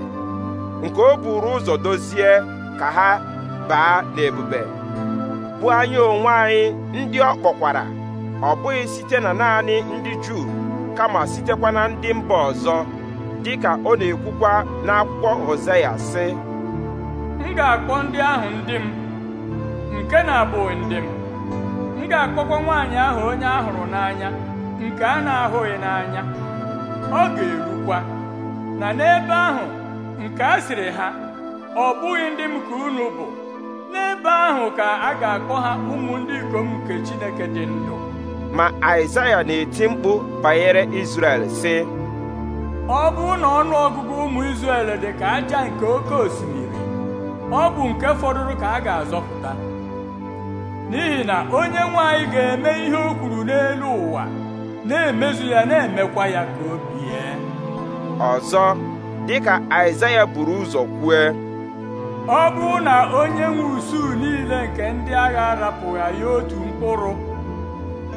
Speaker 1: nke o buru ụzọ dozie ka ha baa n'ebube bụ anyị onwe anyị ndị ọ kpọkwara ọ bụghị site na naanị ndị Juu kama sitekwa na ndị mba ọzọ dị ka ọ na-ekwukwa n'akwụkwọ Hosea sị
Speaker 2: m ga-akpọ ndị ahụ ndị m nke na-abụghị ndị m m ga-akpọkwa nwaanyị ahụ onye a n'anya nke a na-ahụghị n'anya ọ ga-erukwa na n'ebe ahụ nke a ha ọ bụghị ndị m ka unu bụ n'ebe ahụ ka a ga-akpọ ha ụmụ ndị ikom nke Chineke
Speaker 1: dị ndụ ma Aịzaya na-eti mkpu banyere Izrel sị
Speaker 2: ọ bụ na ọnụ ọgụgụ ụmụ Izrel dị ka aja nke oke osimiri ọ bụ nke fọdụrụ ka a ga-azọpụta n'ihi na onye nwanyị ga-eme ihe o kwuru n'elu ụwa na-emezu
Speaker 1: ya na-emekwa ya
Speaker 2: ka o bie
Speaker 1: ọzọ dịka Aịzaya buru ụzọ kwue
Speaker 2: ọ bụrụ na onye nwe usuu niile nke ndị agha arapụghị ya otu mkpụrụ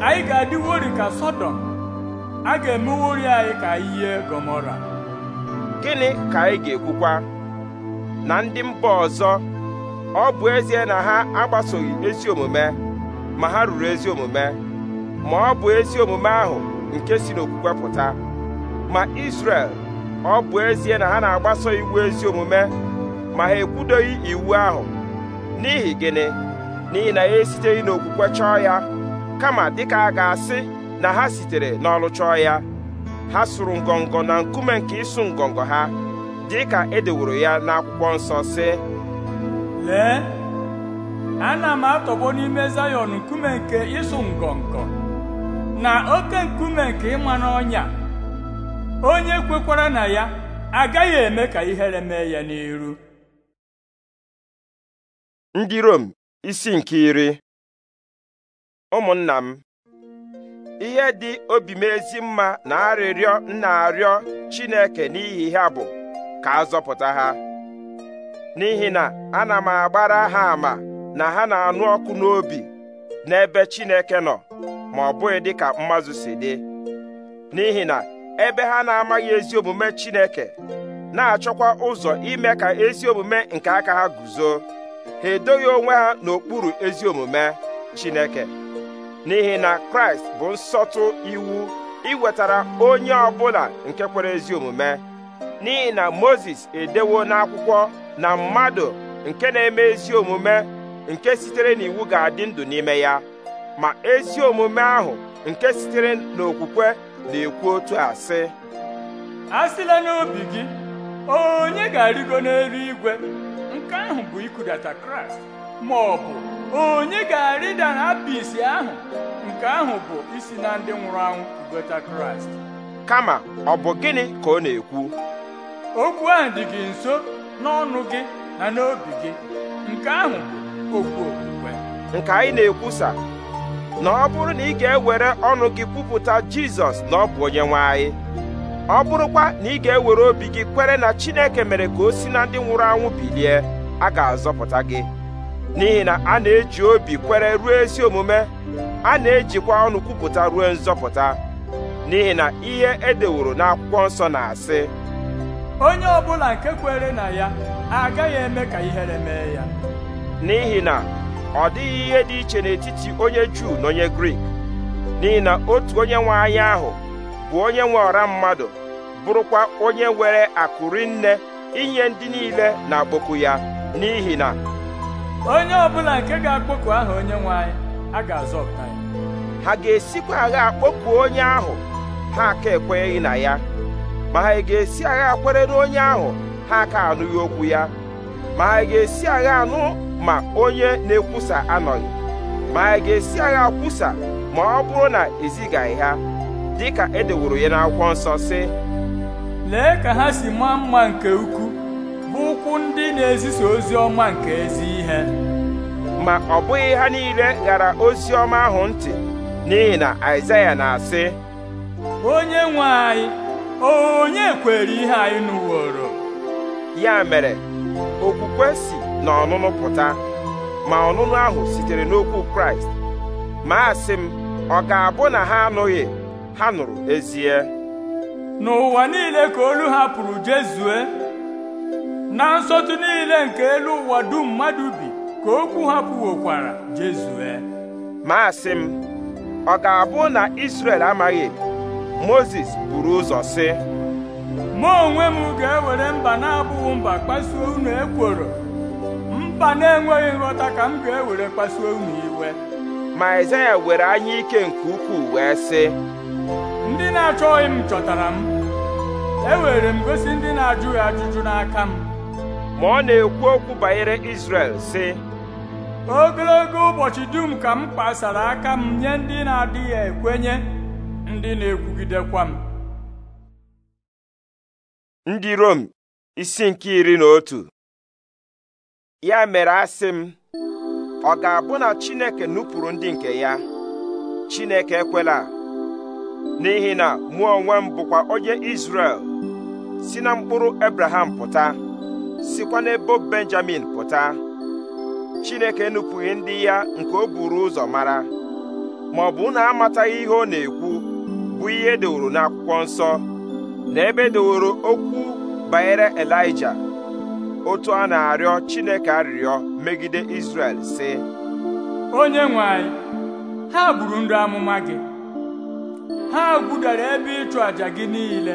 Speaker 2: anyị ga-adịwori ka
Speaker 1: sọdọm a ga-emewori anyị ka ihe Gomora. gịnị ka anyị ga-ekwukwa na ndị mba ọzọ ọ bụ ezie na ha agbasoghị ezi omume ma ha ruru ezi omume ma ọ bụ ezi omume ahụ nke si n'okwukwe pụta ma isrel ọ bụ ezie na ha na-agbaso iwu ezi omume ma ha ekwudoghị iwu ahụ n'ihi gịnị n'ihi na ya esiteghị n'okwukwe chọọ ya kama dịka a ga-asị na ha sitere n'ọlụ chọọ ya ha sụrụ ngọngọ na nkume nke ịsụ ngọngọ ha dịka edeworo ya n'akwụkwọ nsọ sị lee
Speaker 2: ana m atọgbo n'ime zayọn nkume nke ịsụ ngọngọ na oke nkume nke ịma n'ọnya onye kwekwara na ya agaghị
Speaker 3: eme ka ihere mee ya n'iru
Speaker 1: ndị Rom isi nke iri ụmụnna m ihe dị obi m ezi mma na arịrịọ nna arịọ Chineke n'ihi ha bụ ka a zọpụta ha n'ihi na ana m agbara ha ama na ha na-anụ ọkụ n'obi n'ebe Chineke nọ ma ọ bụghị dị ka mmazụ si dị n'ihi na ebe ha na-amaghị ezi omume Chineke na-achọkwa ụzọ ime ka ezi omume nke aka ha guzo ha edoghị onwe ha n'okpuru ezi omume Chineke n'ihi na Kraịst bụ nsọtụ iwu iwetara onye ọbụla nke kwere ezi omume n'ihi na mozes edewo n'akwụkwọ na mmadụ nke na-eme ezi omume nke sitere n'iwu ga-adị ndụ n'ime ya ma ezi omume ahụ nke sitere n'okwukwe na-ekwu otu a sị a sịla n'obi gị
Speaker 2: onye ga-arịgo n'elu igwe nke ahụ bụ ikudata kraịst ma ọ bụ onye ga-arịda na apịsị ahụ nke ahụ bụ isi na ndị nwụrụ anwụ kugota kraịst kama
Speaker 1: ọ bụ gịnị ka ọ na-ekwu okwu ahụ dị gị nso n'ọnụ gị na n'obi gị nke ahụ bụ okwu okwukwe nke anyị na-ekwusa na ọ bụrụ na ị ga-ewere ọnụ gị kwupụta jizọs na ọ bụ onye nwe ọ bụrụkwa na ị ga-ewere obi gị kwere na chineke mere ka o si na ndị nwụrụ anwụ bilie a ga-azọpụta gị n'ihi na a na-eji obi kwere ruo ezi omume a na-ejikwa ọnụ kwupụta ruo nzọpụta n'ihi na ihe edeworo n'akwụkwọ nsọ na-asị onye ọbụla nke kwere na ya agaghị eme ka ihere mee ya n'ihi na ọ dịghị ihe dị iche n'etiti onye Juu na onye Grik n'ihi na otu onye nwe anya ahụ bụ onye nwe ọra mmadụ bụrụkwa onye nwere akụrinne inye ndị niile na-akpọku ya n'ihi na
Speaker 2: onye ọbụla nke ga-akpọku aha onye nwe anyị a ga-azọpụta ya
Speaker 1: ha ga-esikwa agha akpọku onye ahụ ha aka ekwenyeghị na ya ma ha ga-esi agha akwere onye ahụ ha aka anụghị okwu ya ma ha ga-esi agha anụ ma onye na-ekwusa anọghị ma ha ga-esi agha kwusa ma ọ bụrụ na ezigaghị ha dịka edeworo ya n'akwụkwọ nsọ sị
Speaker 2: lee ka ha si maa mma
Speaker 1: nke ukwu ụkwụ ndị na-ezisa ozi ọma nke ezi ihe ma ọ bụghị ha niile ghara ozi ọma ahụ ntị n'ihi na Aịzaya na-asị onye nwe anyị onye kwere ihe anyị nụworo ya mere okwukwe si na ọnụnụ pụta ma ọnụnụ ahụ sitere n'okwu Kraịst ma asị m ọ ga-abụ na ha anụghị ha nụrụ ezie n'ụwa niile ka olu ha pụrụ jezue na nsọtụ niile nke elu ụwa dum mmadụ bi ka okwu ha pụwokwara jezue Maasị m ọ ga-abụ na isrel amaghị Mozis buru ụzọ sị mụ onwe m ga-ewere
Speaker 2: mba na-abụghị mba kpasuo unu ekworo mba na-enweghị nghọta ka m ga-ewere kpasuo unu iwe ma Aịzaya were anya ike nke ukwuu wee sị ndị na-achọghị m chọtara m ewere m gosi ndị na-ajụghị ajụjụ n'aka m ma ọ na-ekwu okwu banyere Izrel sị ogologo ụbọchị dum ka m kpasara aka m nye ndị na-adịghị ekwenye ndị na-ekwugidekwa m
Speaker 3: ndị Rom
Speaker 1: isi nke iri na otu ya mere asị m ọ ga-abụ na Chineke nupụrụ ndị nke ya Chineke ekwela n'ihi na mụ onwe m bụkwa onye Izrel si na mkpụrụ Abraham pụta sikwa n'ebo benjamin pụta chineke nupụghị ndị ya nke o buru ụzọ mara ma ọ bụ na amataghị ihe ọ na-ekwu bụ ihe edeworo n'akwụkwọ nsọ na ebe edeworo okwu banyere elija otu a na-arịọ chineke arịrịọ megide israel si.
Speaker 2: onye nwe ha gburu ndị amụma gị ha gbudara ebe ịchụ àjà gị niile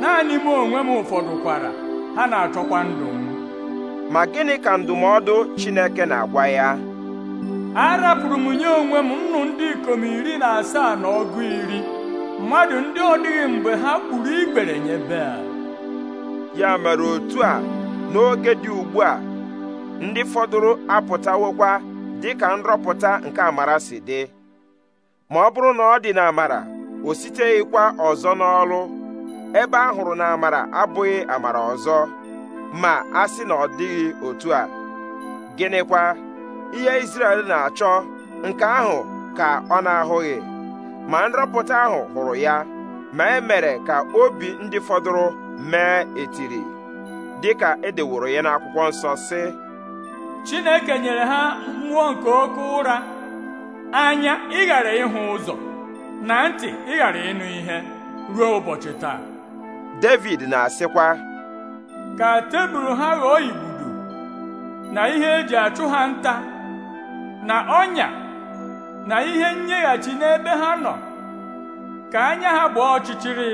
Speaker 2: naanị m onwe m ụfọdụ kwara
Speaker 1: ha na-achọkwa ndụ m ma gịnị ka ndụmọdụ Chineke na-agwa ya
Speaker 2: arapụrụ m nye onwe m nnụ ndị ikom iri na asaa na ọgụ iri
Speaker 1: mmadụ ndị ọ dịghị mgbe ha kpuru igbere nye bea. ya mere otu a n'oge dị ugbu a ndị fọdụrụ apụtawokwa dị ka nrọpụta nke amara si dị ma ọ bụrụ na ọ dị amara o siteghịkwa ọzọ n'ọlụ ebe ahụrụ hụrụ na amara abụghị amara ọzọ ma a sị na ọ dịghị otu a gịnịkwa ihe Izrel na-achọ nke ahụ ka ọ na-ahụghị ma nrọpụta ahụ hụrụ ya ma e mere ka obi ndị fọdụrụ mee etiri dịka edeworo ya n'akwụkwọ nsọ sị
Speaker 2: Chineke nyere ha mmụọ nke oke ụra anya ịghara ịhụ ụzọ na ntị ịghara ịnụ ihe ruo ụbọchị taa
Speaker 1: David na-asịkwa
Speaker 2: ka tebụl ha ghọọ ibudo na ihe eji achụ ha nta na ọnya na ihe nyeghachi n'ebe ha nọ ka anya ha gbaa ọchịchịrị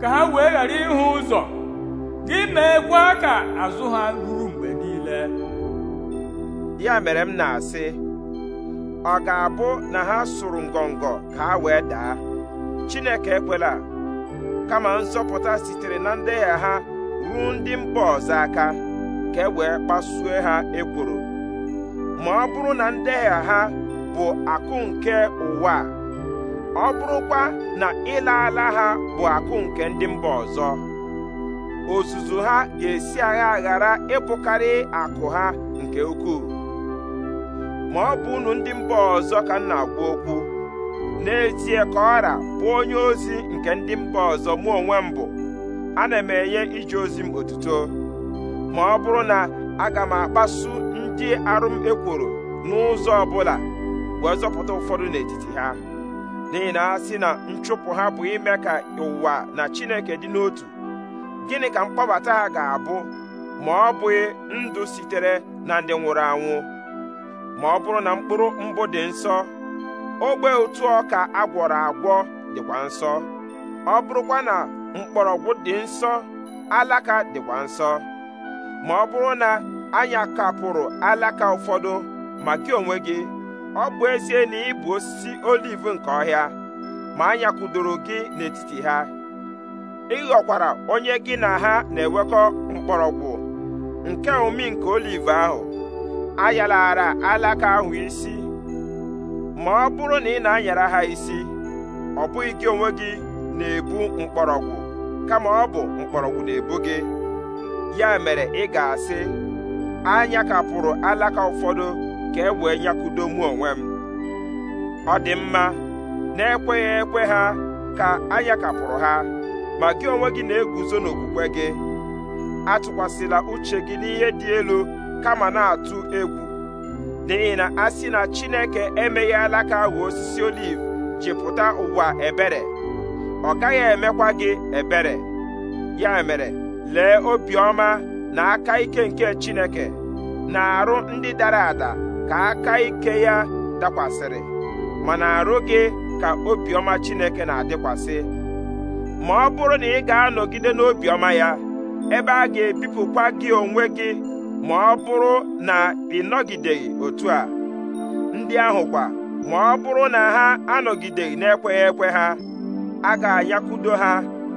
Speaker 2: ka ha wee ghara ịhụ ụzọ gị
Speaker 1: meekwa ka azụ ha ruru mgbe niile ya mere m na-asị ọ ga-abụ na ha sụrụ ngọngọ ka ha wee daa Chineke ekwela kama nzọpụta sitere na ndegha ha ruo ndị mba ọzọ aka ka e wee kpasue ha ekworo ma ọ bụrụ na ndegha ha bụ akụ nke ụwa ọ bụrụkwa na ịla ala ha bụ akụ nke ndị mba ọzọ ozuzu ha ga-esi agha ghara ịbụkarị akụ ha nke ukwuu ma ọ bụ unu ndị mba ọzọ ka m na-agwa okwu n'ezie ka ọra bụ onye ozi nke ndị mba ọzọ mụ onwe m bụ ana m enye ije ozi m otuto ma ọ bụrụ na aga m akpasu ndị arụ m ekworo n'ụzọ ọbụla wee zọpụta ụfọdụ n'etiti ha n'ihi na ha si na nchụpụ ha bụ ime ka ụwa na Chineke dị n'otu gịnị ka mkpọbata ha ga-abụ ma ọ bụghị ndụ sitere na ndị nwụrụ anwụ ma ọ bụrụ na mkpụrụ mbụ dị nsọ ogbe otu ọka agwọrọ agwọ dịkwa nsọ ọ bụrụkwa na mgbọrọgwụ dị nsọ alaka dịkwa nsọ ma ọ bụrụ na anya kapụrụ alaka ụfọdụ ma gị onwe gị ọ bụ ezie na ị bụ osisi oliv nke ọhịa ma anya kụdoro gị n'etiti ha ị ghọkwara onye gị na ha na-ewekọ mgbọrọgwụ nke omi nke oliv ahụ ayalara alaka ahụ isi ma ọ bụrụ na ị na-anyara ha isi ọ bụghị gị onwe gị na-ebu mkpọrọgwụ kama ọ bụ mkpọrọgwụ na-ebu gị ya mere ị ga-asị anya kapụrụ alaka ụfọdụ ka e wee nyakudo mụ onwe m ọ dị mma na-ekweghị ekwe ha ka anya kapụrụ ha ma gị onwe gị na-eguzo n'okwukwe gị atụkwasịla uche gị n'ihe dị elu kama na-atụ egwu n'ihi na a sị na Chineke emeghe alaka ahụ osisi oliv ji ụwa ebere ọ gaghị emekwa gị ebere ya mere lee obiọma na aka ike nke Chineke na-arụ ndị dara ada ka aka ike ya dakwasịrị mana arụ gị ka obiọma Chineke na-adịkwasị ma ọ bụrụ na ị ga-anọgide n'obiọma ya ebe a ga-ebipụkwa gị onwe gị ma ọ bụrụ na ị nọgideghị otu a ndị ahụ kwa ma ọ bụrụ na ha anọgideghị na-ekweghị ekwe ha a ga-anyakwudo ha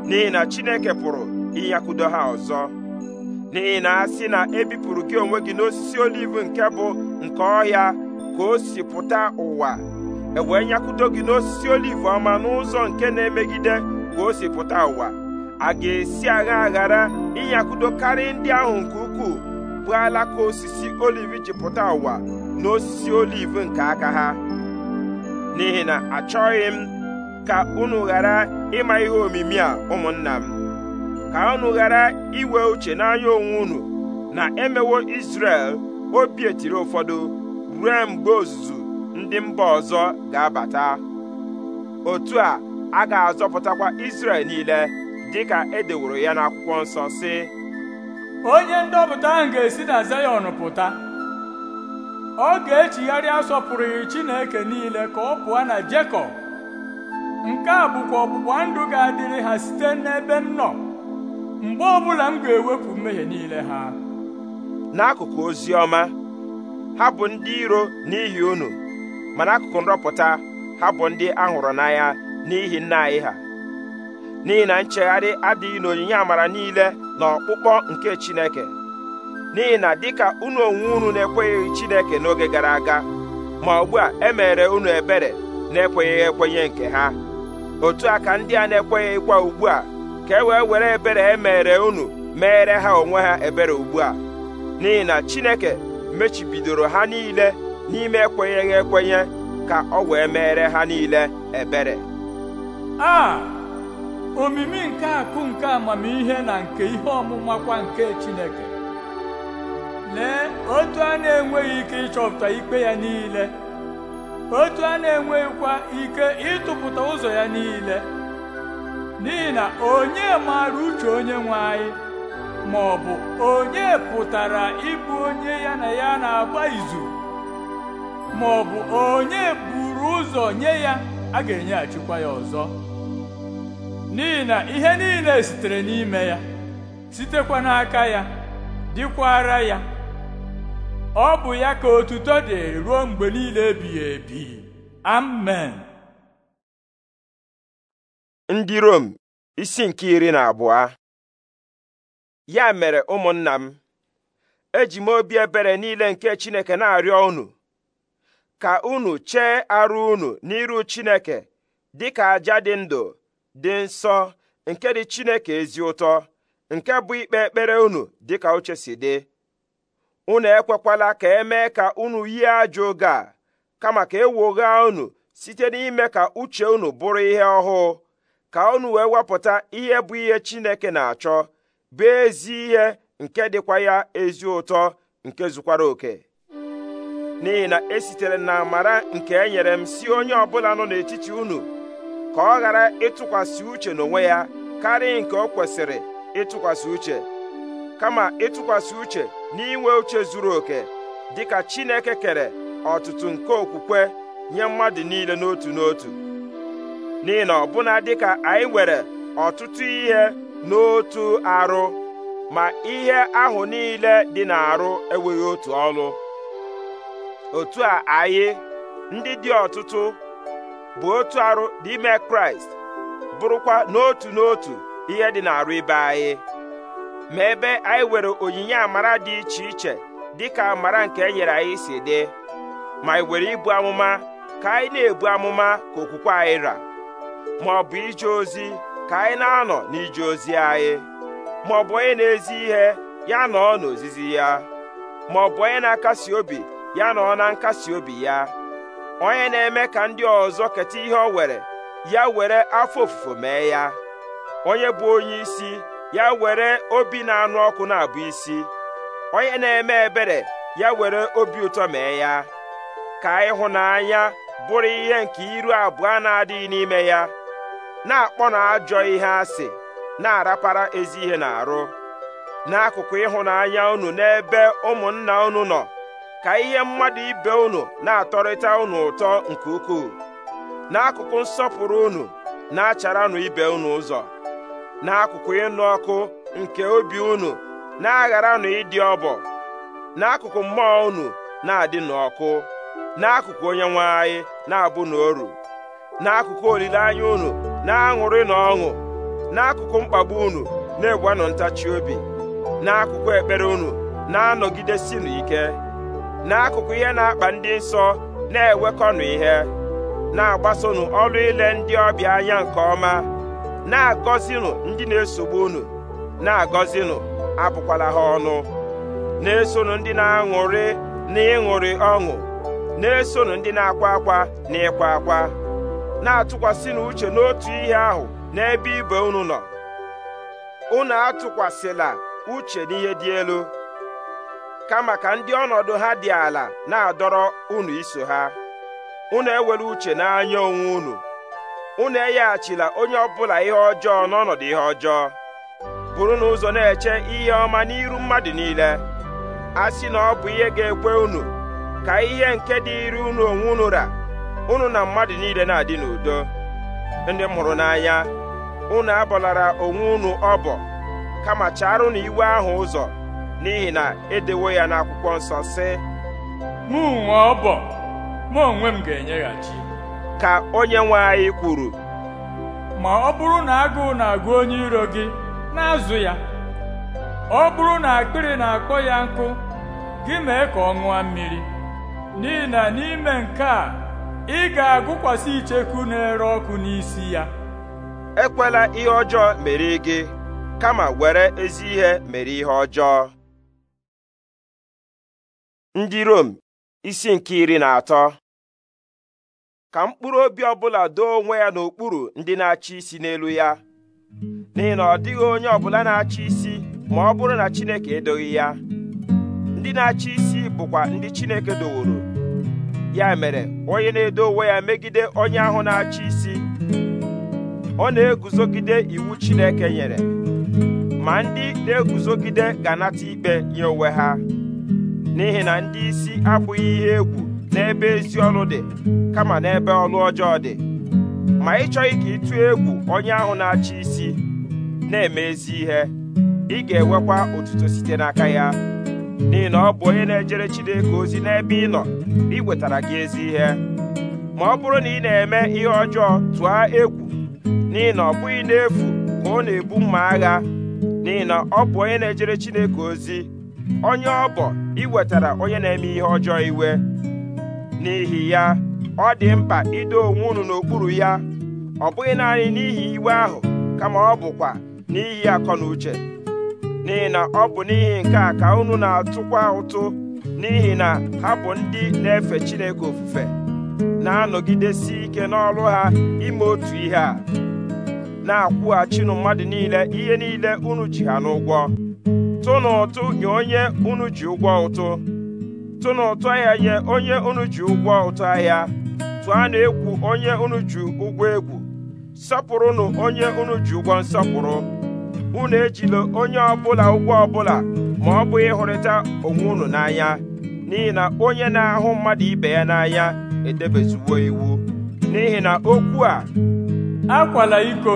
Speaker 1: n'ihi na Chineke pụrụ ịnyakwudo ha ọzọ n'ihi na a sị na ebipụrụ gị onwe gị n'osisi oliv nke bụ nke ọhịa ka o si pụta ụwa ewee nyakwudo gị n'osisi oliv ọma n'ụzọ nke na-emegide ka o si pụta ụwa a ga-esi agha aghara ịnyakwudo karịa ndị ahụ nke ukwuu mgbe alaka osisi oliv ji pụta ụwa na osisi oliv nke aka ha n'ihi na achọghị m ka unu ghara ịma ihe omimi a ụmụnna m ka unu ghara iwe uche n'anya onwe unu na emewo isrel obi etiri ụfọdụ ruo mgbe ozuzu ndị mba ọzọ ga-abata otu a a ga-azọpụtakwa isrel niile dịka e ya n'akwụkwọ nsọ si onye ndọpụta ahụ ga-esi na zayọn pụta ọ
Speaker 2: ga-echigharị asọpụrụghị chineke niile ka ọ pụọ na jekọb nke a bụkwa ọgbụgba ndụ ga-adịrị ha site n'ebe m nọ mgbe ọbụla m ga-ewepụ
Speaker 1: mmehie niile ha n'akụkụ ozi ọma ha bụ ndị iro n'ihi unu ma n'akụkụ nrọpụta ha bụ ndị ahụrụ n'anya n'ihi nna anyị ha n'ihi na nchegharị adịghị n'onyinye amara niile na ọkpụkpọ nke Chineke n'ihi na dịka unu onwe unu na-ekwenyeghị Chineke n'oge gara aga ma ugbu a emere unu ebere na-ekwenyeghị ekwenye nke ha otu a ka ndị a na ịkwa ugbu a ka e wee were ebere e mere unu meere ha onwe ha ebere ugbu a n'ihi na Chineke mechibidoro ha niile n'ime ekwenyeghị ekwenye ka ọ wee meere ha niile ebere
Speaker 2: omimi nke akụ nke amamihe na nke ihe ọmụma kwa nke Chineke lee otu a na-enweghị ike ịchọpụta ikpe ya niile otu a na-enweghịkwa ike ịtụpụta ụzọ ya niile n'ihi na onye maara uche onye nwe anyị ma ọ bụ onye pụtara ịbụ onye ya na ya na-agba izu ma ọ bụ onye buru ụzọ nye ya a ga-enyeghachikwa ya ọzọ n'ihi na ihe niile sitere n'ime ya sitekwa n'aka ya dịkwara ya ọ bụ ya ka otuto dị ruo
Speaker 3: mgbe niile ebighị ebi amen
Speaker 1: ndị Rom isi nke iri na abụọ ya mere ụmụnna m eji m obi ebere niile nke Chineke na-arịọ unu ka unu chee arụ unu n'iru Chineke ka aja dị ndụ dị nsọ nke dị Chineke ezi ụtọ nke bụ ikpe ekpere unu dịka uche si dị unu ekwekwala ka emee ka unu yie ajọ oge a kama ka ewogha unu site n'ime ka uche unu bụrụ ihe ọhụụ ka unu wee wepụta ihe bụ ihe Chineke na-achọ bụ ezi ihe nke dịkwa ya ezi ụtọ nke zukwara oke n'ihi na esitere na amara nke e nyere m si onye ọbụla nọ n'etiti unu ka ọ ghara ịtụkwasị uche n'onwe ya karịa nke ọ kwesịrị ịtụkwasị uche kama ịtụkwasị uche n'inwe uche zuru oke dịka Chineke kere ọtụtụ nke okwukwe nye mmadụ niile n'otu n'otu n'ihi na ọbụna dịka anyị nwere ọtụtụ ihe n'otu arụ ma ihe ahụ niile dị n'arụ enweghị otu ọlụ otu a anyị ndị dị ọtụtụ bụ otu arụ n'ime kraịst bụrụkwa n'otu n'otu ihe dị n'arụ ibe anyị ma ebe anyị were onyinye amara dị iche iche dịka amara nke e nyere anyị si dị ma anyị were ibu amụma ka anyị na-ebu amụma ka okwukwe anyị ra ma ọ bụ ije ozi ka anyị na-anọ n'ije ozi anyị ma ọ bụ onye na-ezi ihe ya nọọ n'ozizi ya ma ọ bụ onye na-akasi obi ya nọọ na nkasi obi ya onye na-eme ka ndị ọzọ keta ihe o were ya were afọ ofufo mee ya onye bụ onye isi ya were obi na-anụ ọkụ na-abụ isi onye na-eme ebere ya were obi ụtọ mee ya ka ịhụnanya bụrụ ihe nke iru abụọ na-adịghị n'ime ya na-akpọ na ajọ ihe asị na-arapara ezi ihe na arụ n'akụkụ ịhụnanya unu n'ebe ụmụnna unu nọ ka ihe mmadụ ibe unu na-atọrịta unu ụtọ nke ukwuu n'akụkụ nsọpụrụ unu na-acharanụ ibe unu ụzọ n'akụkụ ịnụ ọkụ nke obi unu na-agharanụ ịdị ọbọ n'akụkụ mmụọ unu na-adị n'ọkụ n'akụkụ onye nwe anyị na-abụ n'oru n'akụkụ olileanya unu na-aṅụrị na ọṅụ n'akụkụ mkpagbu unu na-egwanụ ntachi obi n'akụkụ ekpere unu na-anọgidesi n'ike n'akụkụ ihe na-akpa ndị nsọ na-ewekọnụ ihe na-agbasonụ ọrụ ile ndị ọbịa anya nke ọma na-agọzinụ ndị na-esogbu unu na-agọzinụ abụkwala ha ọnụ na-esonụ ndị na-aṅụrị na ọṅụ na-esonụ ndị na-akwa akwa na ịkwa akwa na-atụkwasịnụ uche n'otu ihe ahụ n'ebe ibe unu nọ unu atụkwasịla uche n'ihe dị elu kama ka ndị ọnọdụ ha dị ala na-adọrọ unu iso ha unu ewere uche n'anya onwe unu unu enyeghachila onye ọbụla ihe ọjọọ n'ọnọdụ ihe ọjọọ bụrụ na ụzọ na-eche ihe ọma n'iru mmadụ niile a sị na ọ bụ ihe ga-ekwe unu ka ihe nke dịịrị unu onwe unu ra unu na mmadụ niile na-adị n'udo ndị mụrụ n'anya unu abọlara onwe unu ọbọ kama chara na iwe ahụ ụzọ n'ihi na edewo ya n'akwụkwọ nsọ sị mụ nwee ọbọ mụ onwe m ga-enyeghachi ka onye nwe anyị kwuru
Speaker 2: ma ọ bụrụ na agụụ na-agụ onye iro gị na-azụ ya ọ bụrụ na akpịrị na-akpọ ya nkụ gị mee ka ọ ṅụọ mmiri n'ihi na n'ime nke a
Speaker 1: ị ga-agụkwasị icheku na-ere ọkụ n'isi ya ekwela ihe ọjọọ mere gị kama were ezi ihe mere ihe ọjọọ ndị Rom isi nke iri na atọ ka mkpụrụ obi ọbụla doo onwe ya n'okpuru ndị na-achị isi n'elu ya n'ihi na ọ dịghị onye ọbụla na-achị isi ma ọ bụrụ na Chineke edoghị ya ndị na-achị isi bụkwa ndị Chineke doworo ya mere onye na-edo onwe ya megide onye ahụ na-achị isi ọ na-eguzogide iwu Chineke nyere ma ndị na-eguzogide ga-anata ikpe nye onwe ha n'ihi na ndị isi abụghị ihe egwu n'ebe ezi ọrụ dị kama n'ebe ọrụ ọjọọ dị ma ị chọghị ka ịtụ egwu onye ahụ na-achị isi na-eme ezi ihe ị ga-enwekwa otuto site n'aka ya n'ihi na ọ bụ onye na-ejere Chineke ozi n'ebe ị nọ wetara gị ezi ihe ma ọ bụrụ na ị na-eme ihe ọjọọ tụọ egwu n'ihi na ọ bụghị n'efu ka ọ na-ebu mma agha n'ihi na ọ bụ onye na-ejere Chineke ozi onye ọ bụ iwetara onye na-eme ihe ọjọọ iwe n'ihi ya ọ dị mkpa ido onwe unu n'okpuru ya ọ bụghị naanị n'ihi iwe ahụ kama ọ bụkwa n'ihi akọ na uche n'ihi na ọ bụ n'ihi nke a ka unu na-atụkwa ụtụ n'ihi na ha bụ ndị na-efe Chineke ofufe na-anọgidesi ike n'ọrụ ha ime otu ihe a na-akwụghachinụ mmadụ niile ihe niile unu ji ha n'ụgwọ tụnụ ụtụ nye onye unu ji ụgwọ ụtụ tụnụ ahịa nye onye unu ji ụgwọ ụtụ ahịa tụanụ egwu onye unu ji ụgwọ egwu sọpụrụnụ onye unu ji ụgwọ nsọpụrụ unu ejila onye ọbụla ụgwọ ọbụla ma ọ bụ ịhụrịta onwe unu n'anya n'ihi na onye na-ahụ mmadụ ibe ya n'anya edebezuwo iwu n'ihi na okwu a akwala iko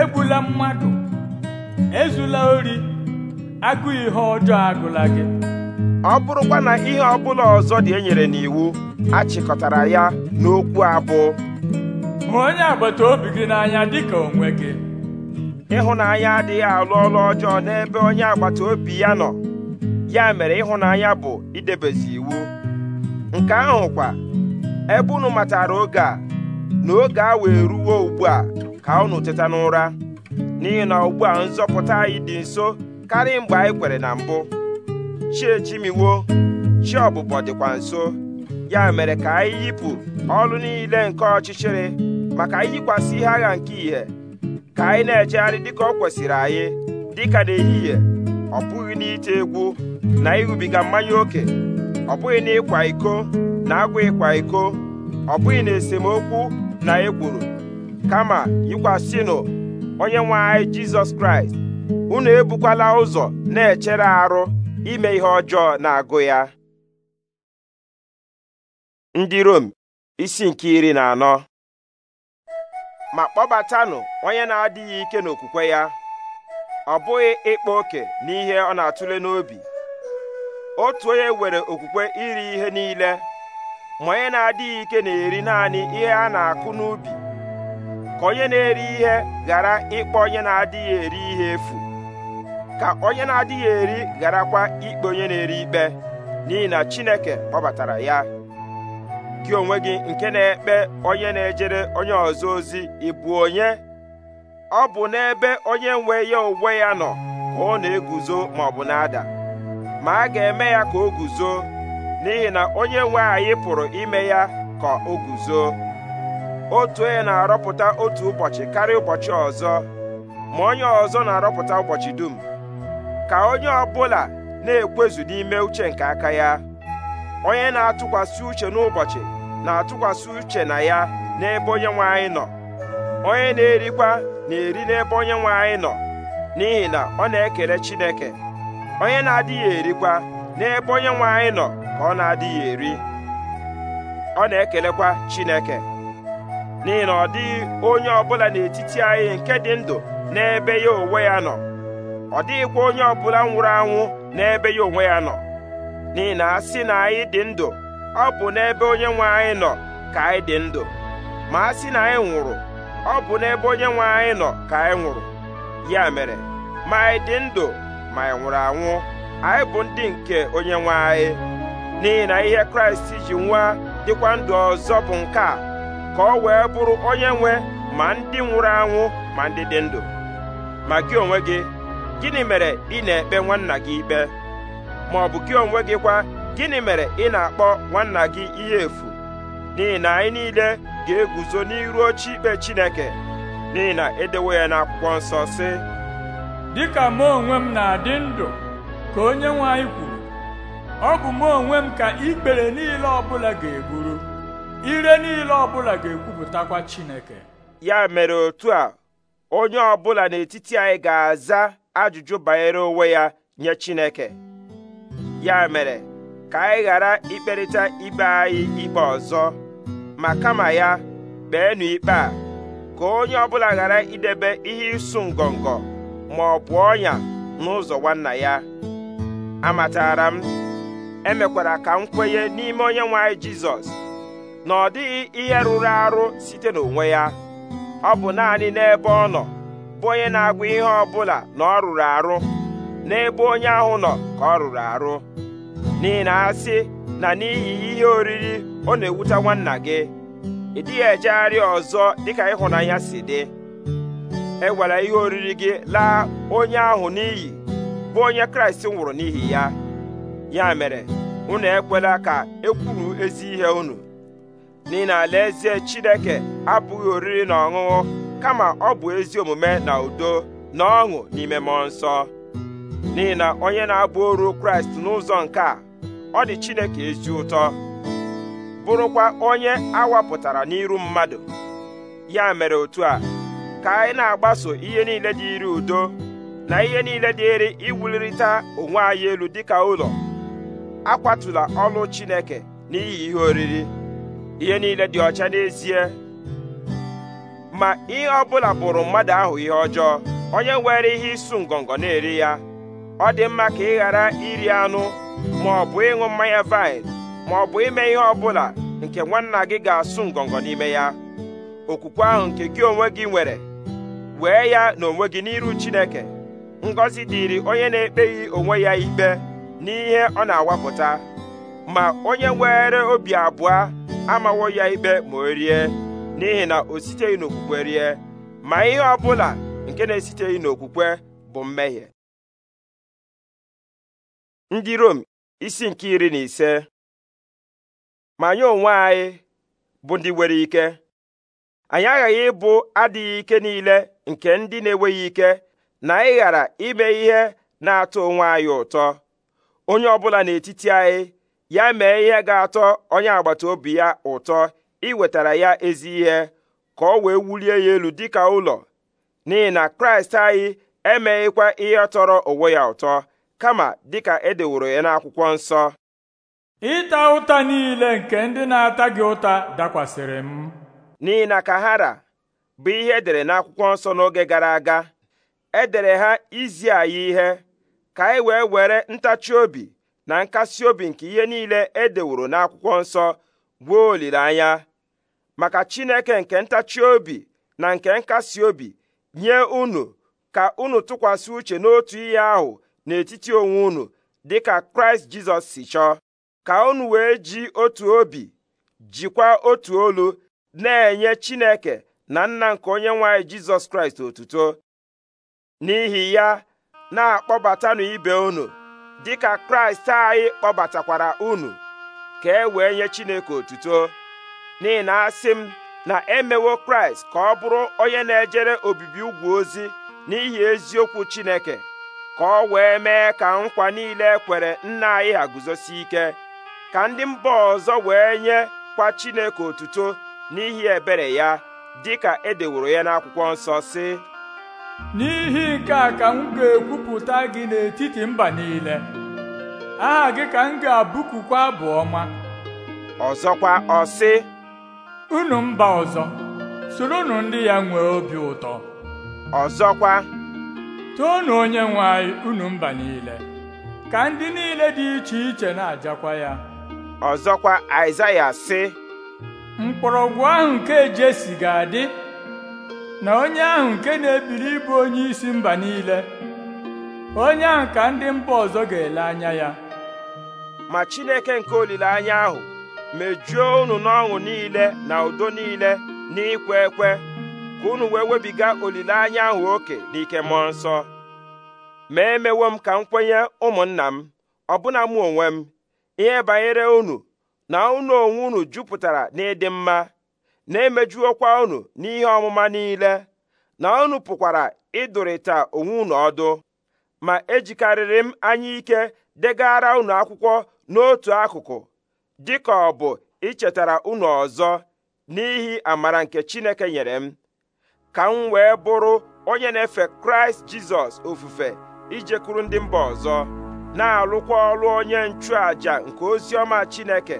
Speaker 1: egbula mmadụ ezula ori agụ ihe ọjọọ agụla gị ọ bụrụkwa na ihe ọbụla ọzọ dị enyere n'iwu achịkọtara ya n'okwu abụọ hụ onye agbata obi gị n'anya ka onwe gị ịhụnanya adịghị alụ ọrụ ọjọọ n'ebe onye agbata obi ya nọ ya mere ịhụnanya bụ idebezi iwu nke ahụ kwa ebe unu matara oge a na oge a wee ruwo ugbu a ka unu teta n'ụra n'ihi na ugbu a nzọpụta anyị dị nso karịa mgbe anyị kwere na mbụ chi echimiwo chi ọbụbọ dịkwa nso ya mere ka anyị yipụ ọrụ niile nke ọchịchịrị maka anyị yikwasị ihe agha nke ìhè ka anyị na-ejegharị dịka ọ kwesịrị anyị dịka n'ehihie ọ bụghị n'ite egwu na ịṅụbiga mmanya ókè ọ bụghị n'ịkwa iko na agwa ịkwa iko ọ bụghị na esemokwu na ekworo kama yikwasịnụ onye nwe anyị jizọs kraịst unu ebukwala ụzọ na-echere arụ ime ihe ọjọọ na-agụ ya ndị Rom isi nke iri na anọ ma kpọbatanụ onye na-adịghị ike n'okwukwe ya ọ bụghị ịkpa oke n'ihe ọ na-atụle n'obi otu onye nwere okwukwe iri ihe niile ma onye na-adịghị ike na-eri naanị ihe a na-akụ n'ubi ka onye na-eri ihe ghara ikpe onye na-adịghị eri ihe efu ka onye na-adịghị eri gharakwa ikpe onye na-eri ikpe n'ihi na Chineke kpọbatara ya gị onwe gị nke na-ekpe onye na-ejere onye ọzọ ozi ịbụ onye ọ bụ n'ebe onye nwe ya onwe ya nọ ka ọ na-eguzo ma ọ bụ na-ada ma a ga-eme ya ka o guzo n'ihi na onye nwe anyị pụrụ ime ya ka o guzo otu onye na-arọpụta otu ụbọchị karịa ụbọchị ọzọ ma onye ọzọ na-arọpụta ụbọchị dum ka onye ọbụla na-ekwezu n'ime uche nke aka ya onye na-atụkwasị uche n'ụbọchị na-atụkwasị uche na ya n'ebe onye nwe anyị nọ onye na-erikwa na-eri n'ebe onye nwe anyị nọ n'ihi na ọ na-ekele Chineke onye na-adịghị erikwa n'ebe onye nwe anyị nọ ka ọ na-adịghị eri ọ na-ekelekwa Chineke n'ihi na ọ dịghị onye ọbụla n'etiti anyị nke dị ndụ n'ebe ya onwe ya nọ ọ dịghịkwa onye ọbụla nwụrụ anwụ n'ebe ya onwe ya nọ n'ihi na a sị na anyị dị ndụ ọ bụ n'ebe onye nwe anyị nọ ka anyị dị ndụ ma a sị na anyị nwụrụ ọ bụ n'ebe onye nwe anyị nọ ka anyị nwụrụ ya mere ma anyị dị ndụ ma anyị nwụrụ anwụ anyị bụ ndị nke onye nwe anyị n'ihi na ihe Kraịst ji nwa dịkwa ndụ ọzọ bụ nke a ka ọ wee bụrụ onye nwe ma ndị nwụrụ anwụ ma ndị dị ndụ ma gị onwe gị gịnị mere ị na-ekpe nwanna gị ikpe ma ọ bụ gị onwe gị kwa gịnị mere ị na-akpọ nwanna gị ihe efu n'ihi na anyị niile ga-eguzo n'iru oche ikpe Chineke n'ihi na edewo ya n'akwụkwọ nsọ sị dịka m onwe m na-adị ndụ
Speaker 2: ka onye nwe anyị kwuru ọ bụ m onwe m ka ikpere niile ọbụla ga-eburu ire niile ọbụla ga-ekwupụtakwa Chineke
Speaker 1: ya mere otu a onye ọbụla n'etiti anyị ga-aza ajụjụ banyere onwe ya nye Chineke ya mere ka anyị ghara ikperịta ibe anyị ikpe ọzọ ma kama ya kpeenụ ikpe a ka onye ọbụla ghara idebe ihe ịsụ ngọngọ ma ọ bụ ọnya n'ụzọ nwanna ya amatara m emekwara ka m kwenye n'ime onye nwe anyị Jizọs na ọ dịghị ihe rụrụ arụ site n'onwe ya ọ bụ naanị n'ebe ọ nọ bụ onye na-agwa ihe ọ bụla na ọ rụrụ arụ n'ebe onye ahụ nọ ka ọ rụrụ arụ n'ihi na asị na n'ihi ihe oriri ọ na-ewute nwanna gị ị dịghị ejegharị ọzọ dịka ịhụnanya si dị ewere ihe oriri gị laa onye ahụ n'iyi bụ onye kraịst nwụrụ n'ihi ya ya mere unu ekwela ka e kwuru ezi ihe unu n'ihi na alaeze chineke abụghị oriri na ọṅụṅụ kama ọ bụ ezi omume na udo na ọṅụ n'ime mmụọ nsọ n'ihi na onye na-abụ oru kraịst n'ụzọ nke a ọ dị chineke ezi ụtọ bụrụkwa onye awapụtara n'iru mmadụ ya mere otu a ka anyị na-agbaso ihe niile dị udo na ihe niile dịrị iwulirịta onwe anyị elu dịka ụlọ akwatụla ọlụ chineke n'ihi ihe oriri ihe niile dị ọcha n'ezie ma ihe ọbụla bụrụ mmadụ ahụ ihe ọjọọ onye nwere ihe ịsụ ngọngọ na-eri ya ọ dị mma ka ị ghara iri anụ ma ọ bụ ịṅụ mmanya vaịn ma ọ bụ ime ihe ọbụla nke nwanna gị ga-asụ ngọngọ n'ime ya okwukwe ahụ nke gị onwe gị nwere wee ya na onwe gị n'iru Chineke ngọzi dịịrị onye na-ekpeghị onwe ya ikpe n'ihe ọ na-awapụta ma onye nwere obi abụọ amawo ya ikpe ma o rie n'ihi na o siteghị n'okwukwe rie ma ihe ọ bụla nke na-esiteghị n'okwukwe bụ mmehie
Speaker 3: ndị Rom isi nke iri na ise ma
Speaker 1: anyị onwe anyị bụ ndị nwere ike anyị aghaghị ịbụ adịghị ike niile nke ndị na-enweghị ike na anyị ghara ime ihe na-atọ onwe anyị ụtọ onye ọbụla n'etiti anyị ya mee ihe ga-atọ onye agbata obi ya ụtọ iwetara ya ezi ihe ka ọ wee wulie ya elu dịka ụlọ n'ihi na kraịst anyị emeghịkwa ihe tọrọ onwe ya ụtọ kama dịka edeworo ya n'akwụkwọ nsọ ịta ụta niile nke ndị na-ata gị ụta dakwasịrị m n'ihi na kahara bụ ihe edere n'akwụkwọ nsọ n'oge gara aga edere ha izi anyị ihe ka anyị e wee were ntachi obi na nkasi obi nke ihe niile e deworo n'akwụkwọ nsọ gboo olileanya maka Chineke nke ntachi obi na nke nkasi obi nye unu ka unu tụkwasị uche n'otu ihe ahụ n'etiti onwe unu dịka Kraịst Jizọs si chọọ ka unu wee ji otu obi jikwa otu olu na-enye Chineke na nna nke onye nwanyị Jizọs Kraịst otuto n'ihi ya na-akpọbatanụ ibe unu dịka kraịst anyị kpọbatakwara unu ka e wee nye chineke otuto n'ihi na asị m na emewo kraịst ka ọ bụrụ onye na-ejere obibi ugwu ozi n'ihi eziokwu chineke ka ọ wee mee ka nkwa niile ekwere nna anyị ha guzosi ike ka ndị mba ọzọ wee nye kwa chineke otuto n'ihi ebere ya dịka edeworo ya n'akwụkwọ nsọ si n'ihi nke a ka m ga-ekwupụta gị n'etiti mba
Speaker 2: niile aha gị ka m ga-abụkukwa abụ ọma ọzọkwa ọ sị unu mba ọzọ soronu ndị ya nwee obi ụtọ ọzọkwa toonu onye nwe unu mba niile ka ndị niile dị iche iche na-ajakwa ya ọzọkwa Aịzaya sị mkpọrọgwụ ahụ nke Jesi ga-adị na onye ahụ nke na-ebiri ịbụ onye isi mba niile onye ahụ ka ndị mba
Speaker 1: ọzọ ga-ele anya ya ma Chineke nke olileanya ahụ mejuo unu n'ọṅụ niile na udo niile na ekwe ka unu wee webiga olileanya ahụ oke n'ikemọ mmụọ nsọ ma emewo m ka m kwenye ụmụnna m ọbụna mụ onwe m ihe banyere unu na unu onwe unu jupụtara n'ịdị mma na-emejuokwa unu n'ihe ọmụma niile na unu pụkwara ịdụrịta onwe unu ọdụ ma ejikarịrị m anya ike degara unu akwụkwọ n'otu akụkụ dịka ọ bụ ichetara unu ọzọ n'ihi amara nke Chineke nyere m ka m wee bụrụ onye na-efe Kraịst Jizọs ofufe ijekwuru ndị mba ọzọ na-alụkwa ọrụ onye nchụàjà nke oziọma Chineke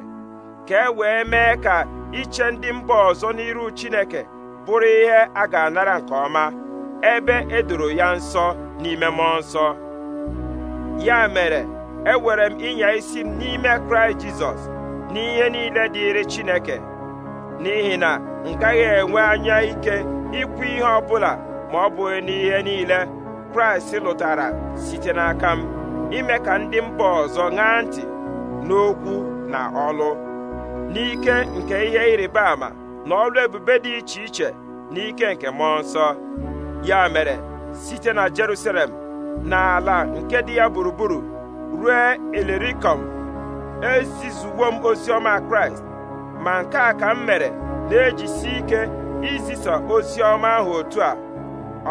Speaker 1: ka e wee mee ka iche ndị mba ọzọ n'iru Chineke bụrụ ihe a ga-anara nke ọma ebe edoro ya nsọ n'ime mmụọ nsọ ya mere ewere m ịnya isi m n'ime Kraịst Jizọs n'ihe niile dịịrị Chineke n'ihi na m gaghị enwe anya ike ikwu ihe ọbụla ma ọ bụghị n'ihe niile Kraịst lụtara site n'aka m ime ka ndị mba ọzọ ṅaa ntị n'okwu na ọlụ n'ike nke ihe ịrịba ama na ọrụ ebube dị iche iche n'ike nke mmụọ nsọ ya mere site na Jerusalem n'ala nke dị ya gburugburu ruo ilirikom ezizuwo m ozi ọma kraịst ma nke a ka m mere na-ejisi ike izisa ozi ọma ahụ otu a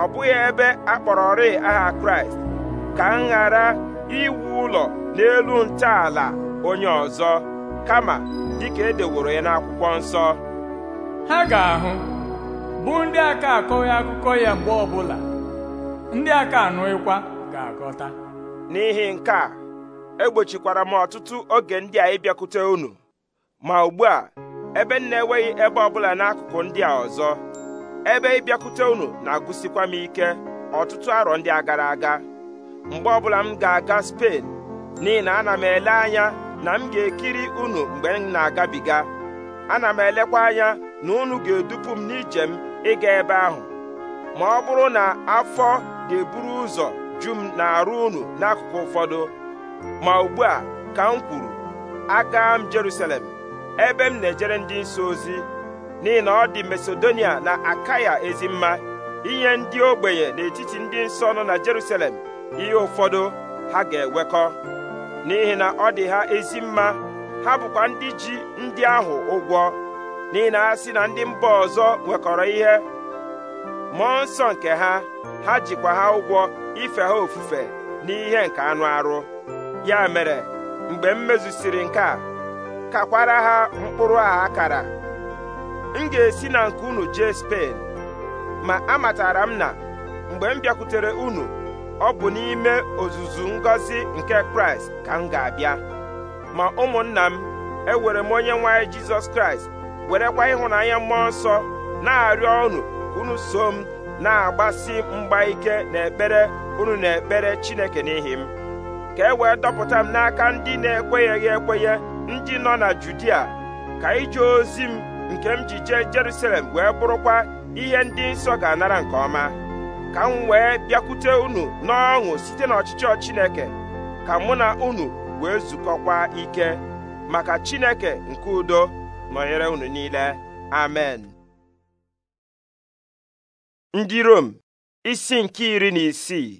Speaker 1: ọ bụghị ebe a kpọrọrị aha kraịst ka m ghara iwu ụlọ n'elu ntọala onye ọzọ kama dịka edeworo ya n'akwụkwọ nsọ ha ga-ahụ bụ ndị aka akọghị
Speaker 2: akụkọ ya mgbe ọbụla ndị aka anụghịkwa ga-aghọta
Speaker 1: n'ihi nke a egbochikwara m ọtụtụ oge ndị a ịbịakwute unu ma ugbu a ebe m na-enweghị ebe ọbụla n'akụkụ ndị a ọzọ ebe ịbịakwute unu na-agụsikwa m ike ọtụtụ arọ ndị a gara aga mgbe ọbụla m ga-aga Spen n'ihi na ana m ele anya na m ga-ekiri unu mgbe m na-agabiga ana m elekwa anya na unu ga-edupu m n'ije m ịga ebe ahụ ma ọ bụrụ na afọ ga-eburu ụzọ ju m na-arụ unu n'akụkụ ụfọdụ ma ugbu a ka m kwuru aga m Jerusalem ebe m na-ejere ndị nsọ ozi n'ihi na ọ dị Masedonia na Akaya ezi mma inye ndị ogbenye n'etiti ndị nsọ nọ na Jerusalem ihe ụfọdụ ha ga-ewekọ n'ihi na ọ dị ha ezi mma ha bụkwa ndị ji ndị ahụ ụgwọ n'ihi na ha si na ndị mba ọzọ nwekọrọ ihe mmụọ nsọ nke ha ha jikwa ha ụgwọ ife ha ofufe n'ihe nke anụ arụ ya mere mgbe m mezusiri nke a kakwara ha mkpụrụ a akara m ga-esi na nke unu jee Spen ma amatara m na mgbe m bịakwutere unu ọ bụ n'ime ozuzu ngọzi nke kraịst ka m ga-abịa ma ụmụnna m ewere m onye nwanyị jizọs kraịst werekwa ịhụnanya mmụọ nsọ na-arịọ unu unu so m na-agbasi mgba ike n'ekpere unu na-ekpere chineke n'ihi m ka e wee dọpụta m n'aka ndị na-ekwenyeghị ekwenye ndị nọ na judia ka ije ozi m nke m ji jee jerusalem wee bụrụkwa ihe ndị nsọ ga-anara nke ọma ka m wee bịakwute unu n'ọṅụ site n'ọchịchọ Chineke ka mụ na unu wee zukọkwa ike maka Chineke nke udo nọnyere unu niile amen ndị Rom isi nke iri na isii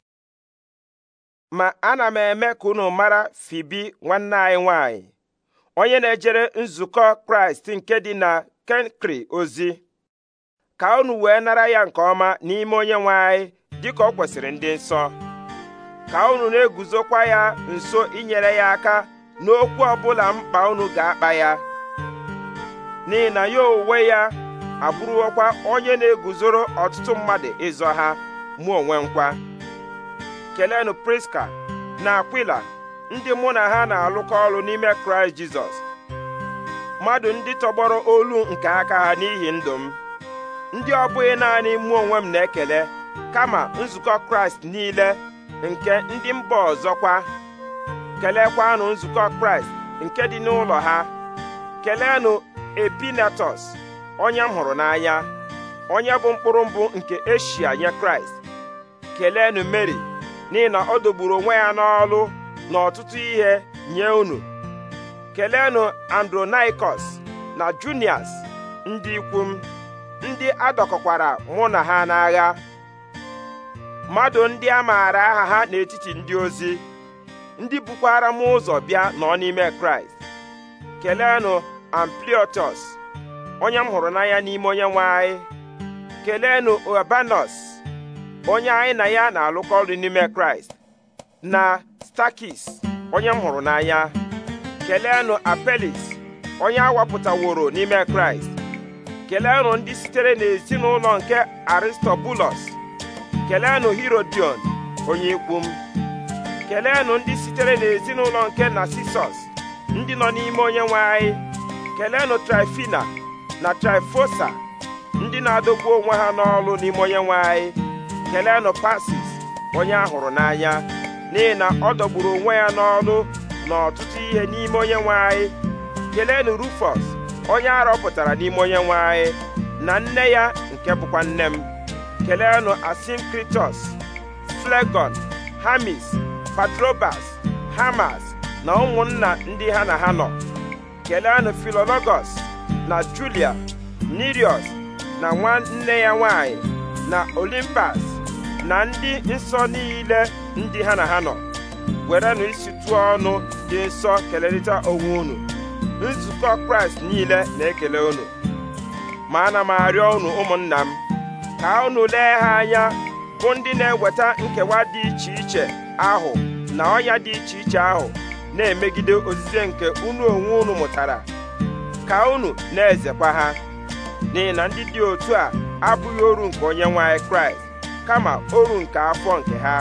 Speaker 1: ma ana m eme ka unu mara Fibi nwanne anyị nwanyị onye na-ejere nzukọ Kraịst nke dị na Kenkri ozi ka unu wee nara ya nke ọma n'ime onye nwe anyị dịka ọ kwesịrị ndị nsọ ka unu na-eguzokwa ya nso inyere ya aka n'okwu ọbụla mkpa unu ga-akpa ya n'ihi na ya onwe ya abụrụkwa onye na-eguzoro ọtụtụ mmadụ ịzọ ha mụ onwe nkwa Kelenu priska na akwila ndị mụ na ha na-alụkọ ọrụ n'ime kraịst jizọs mmadụ ndị tọgbọrọ olu nke aka ha n'ihi ndụ m ndị ọ bụghị naanị mụ onwe m na-ekele kama nzukọ kraịst niile nke ndị mba ọzọkwa kelekwanụ nzukọ kraịst nke dị n'ụlọ ha keleenụ epinetọs onye m hụrụ n'anya onye bụ mkpụrụ mbụ nke eshia nye kraịst keleenụ meri n'ihi na ọ dogburu onwe ya n'ọlụ na ọtụtụ ihe nye unu keleenụ andronaikos na junias ndị ikwu ndị a dọkọkwara mụ na ha n'agha mmadụ ndị a maara aha ha n'etiti ndị ozi ndị bukwara m ụzọ bịa nọ n'ime kraịst kelenụ ampliotus onye m hụrụ n'anya n'ime onye nwe anyị kelenụ urbanus onye anyị na ya na-alụkọ ọrụ n'ime kraịst na stakis onye m hụrụ n'anya kelenụ apelis onye a wapụtaworo n'ime kraịst keleenụ ndị sitere n'ezinụlọ nke aristobulus keleenụ herodion onye ikwu m keleenụ ndị sitere n'ezinụlọ nke narcissus ndị nọ n'ime onye nwe anyị keleenụ trifina na trifosa ndị na-adọgbu onwe ha n'ọlụ n'ime onye nwe anyị keleenụ pasis onye ahụrụ n'anya n'ihi na ọ dọgburu onwe ya n'ọlụ na ọtụtụ ihe n'ime onye nwe anyị keleenụ rufus onye rọpụtara n'ime onye nwe na nne ya nke bụkwa nne m keleenụ asinkritos flegon hamis patrobas hamas na ụmụnna ndị ha na ha nọ keleenụ filologos na julia nirios na nwanne ya nwanyị na olimpas na ndị nsọ niile ndị ha na ha nọ werenụ isi tụọ ọnụ dị nsọ kelerịta onwe unu nzukọ kraịst niile na-ekele unu ma ana m arịọ unu ụmụnna m ka unu lee ha anya bụ ndị na-eweta nkewa dị iche iche ahụ na ọnya dị iche iche ahụ na-emegide ozize nke unu onwe unu mụtara ka unu na-ezekwa ha n'ihi na ndị dị otu a abụghị oru nke onye nwanyị kraịst kama oru nke afọ nke ha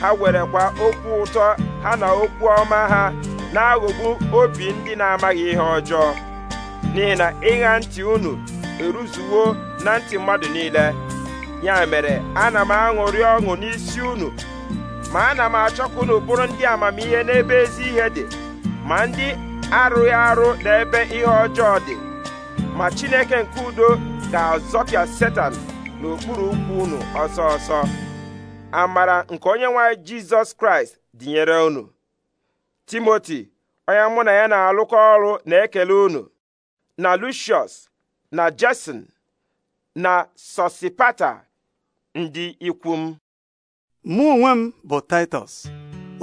Speaker 1: ha werekwa okwu ụtọ ha na okwu ọma ha na-aghọgbu obi ndị na-amaghị ihe ọjọọ n'ihi na ịgha ntị unu eruzuwo na ntị mmadụ niile ya mere ana m aṅụrị ọṅụ n'isi unu ma ana m achọkwa unu bụrụ ndị amamihe n'ebe ezi ihe dị ma ndị arụghị arụ n'ebe ihe ọjọọ dị ma chineke nke udo ga-azọpịa setan n'okpuru ụkwụ unu ọsọ ọsọ amara nke onye nwanyị jizọs kraịst dịnyere unu timoti onye mụ na ya na-alụkọ ọrụ na-ekele unu na lucius na jason na sosipata ndị ikwu m mụ onwe m bụ titus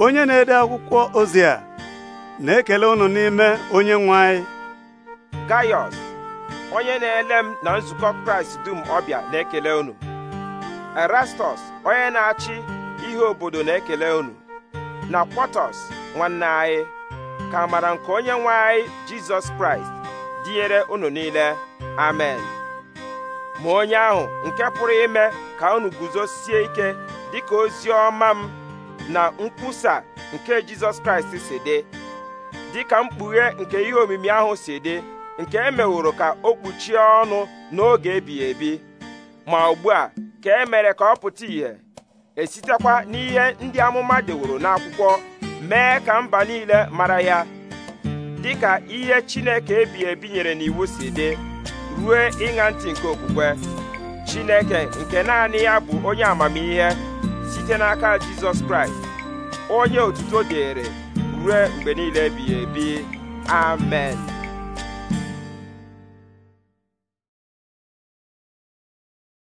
Speaker 1: onye na-ede
Speaker 2: akwụkwọ ozi a na-ekele unu n'ime onye nwe anyị
Speaker 1: gaius onye na-ele m na nzukọ kraịst dum ọbịa na-ekele unu erastus onye na-achị ihe obodo na-ekele unu na kwatus nwanne anyị ka mara nke onye nwe anyị jizọs kraịst dịnyere unu niile amen ma onye ahụ nke pụrụ ime ka unu guzosie ike dịka ozi ọma m na nkwusa nke jizọs kraịst si dị dịka mkpughe nke ihe omimi ahụ si dị nke e ka o kpuchie ọnụ n'oge ebighị ebi ma ugbu a ka e ka ọ pụta ìhè esitekwa n'ihe ndị amụma deworo n'akwụkwọ mee ka mba niile mara ya dịka ihe Chineke ebi ebi nyere n'iwu si dị ruo ịṅa ntị nke okwukwe Chineke nke naanị ya bụ onye amamihe site n'aka Jizọs Kraịst onye otuto dịịrị ruo mgbe niile ebighị ebi amen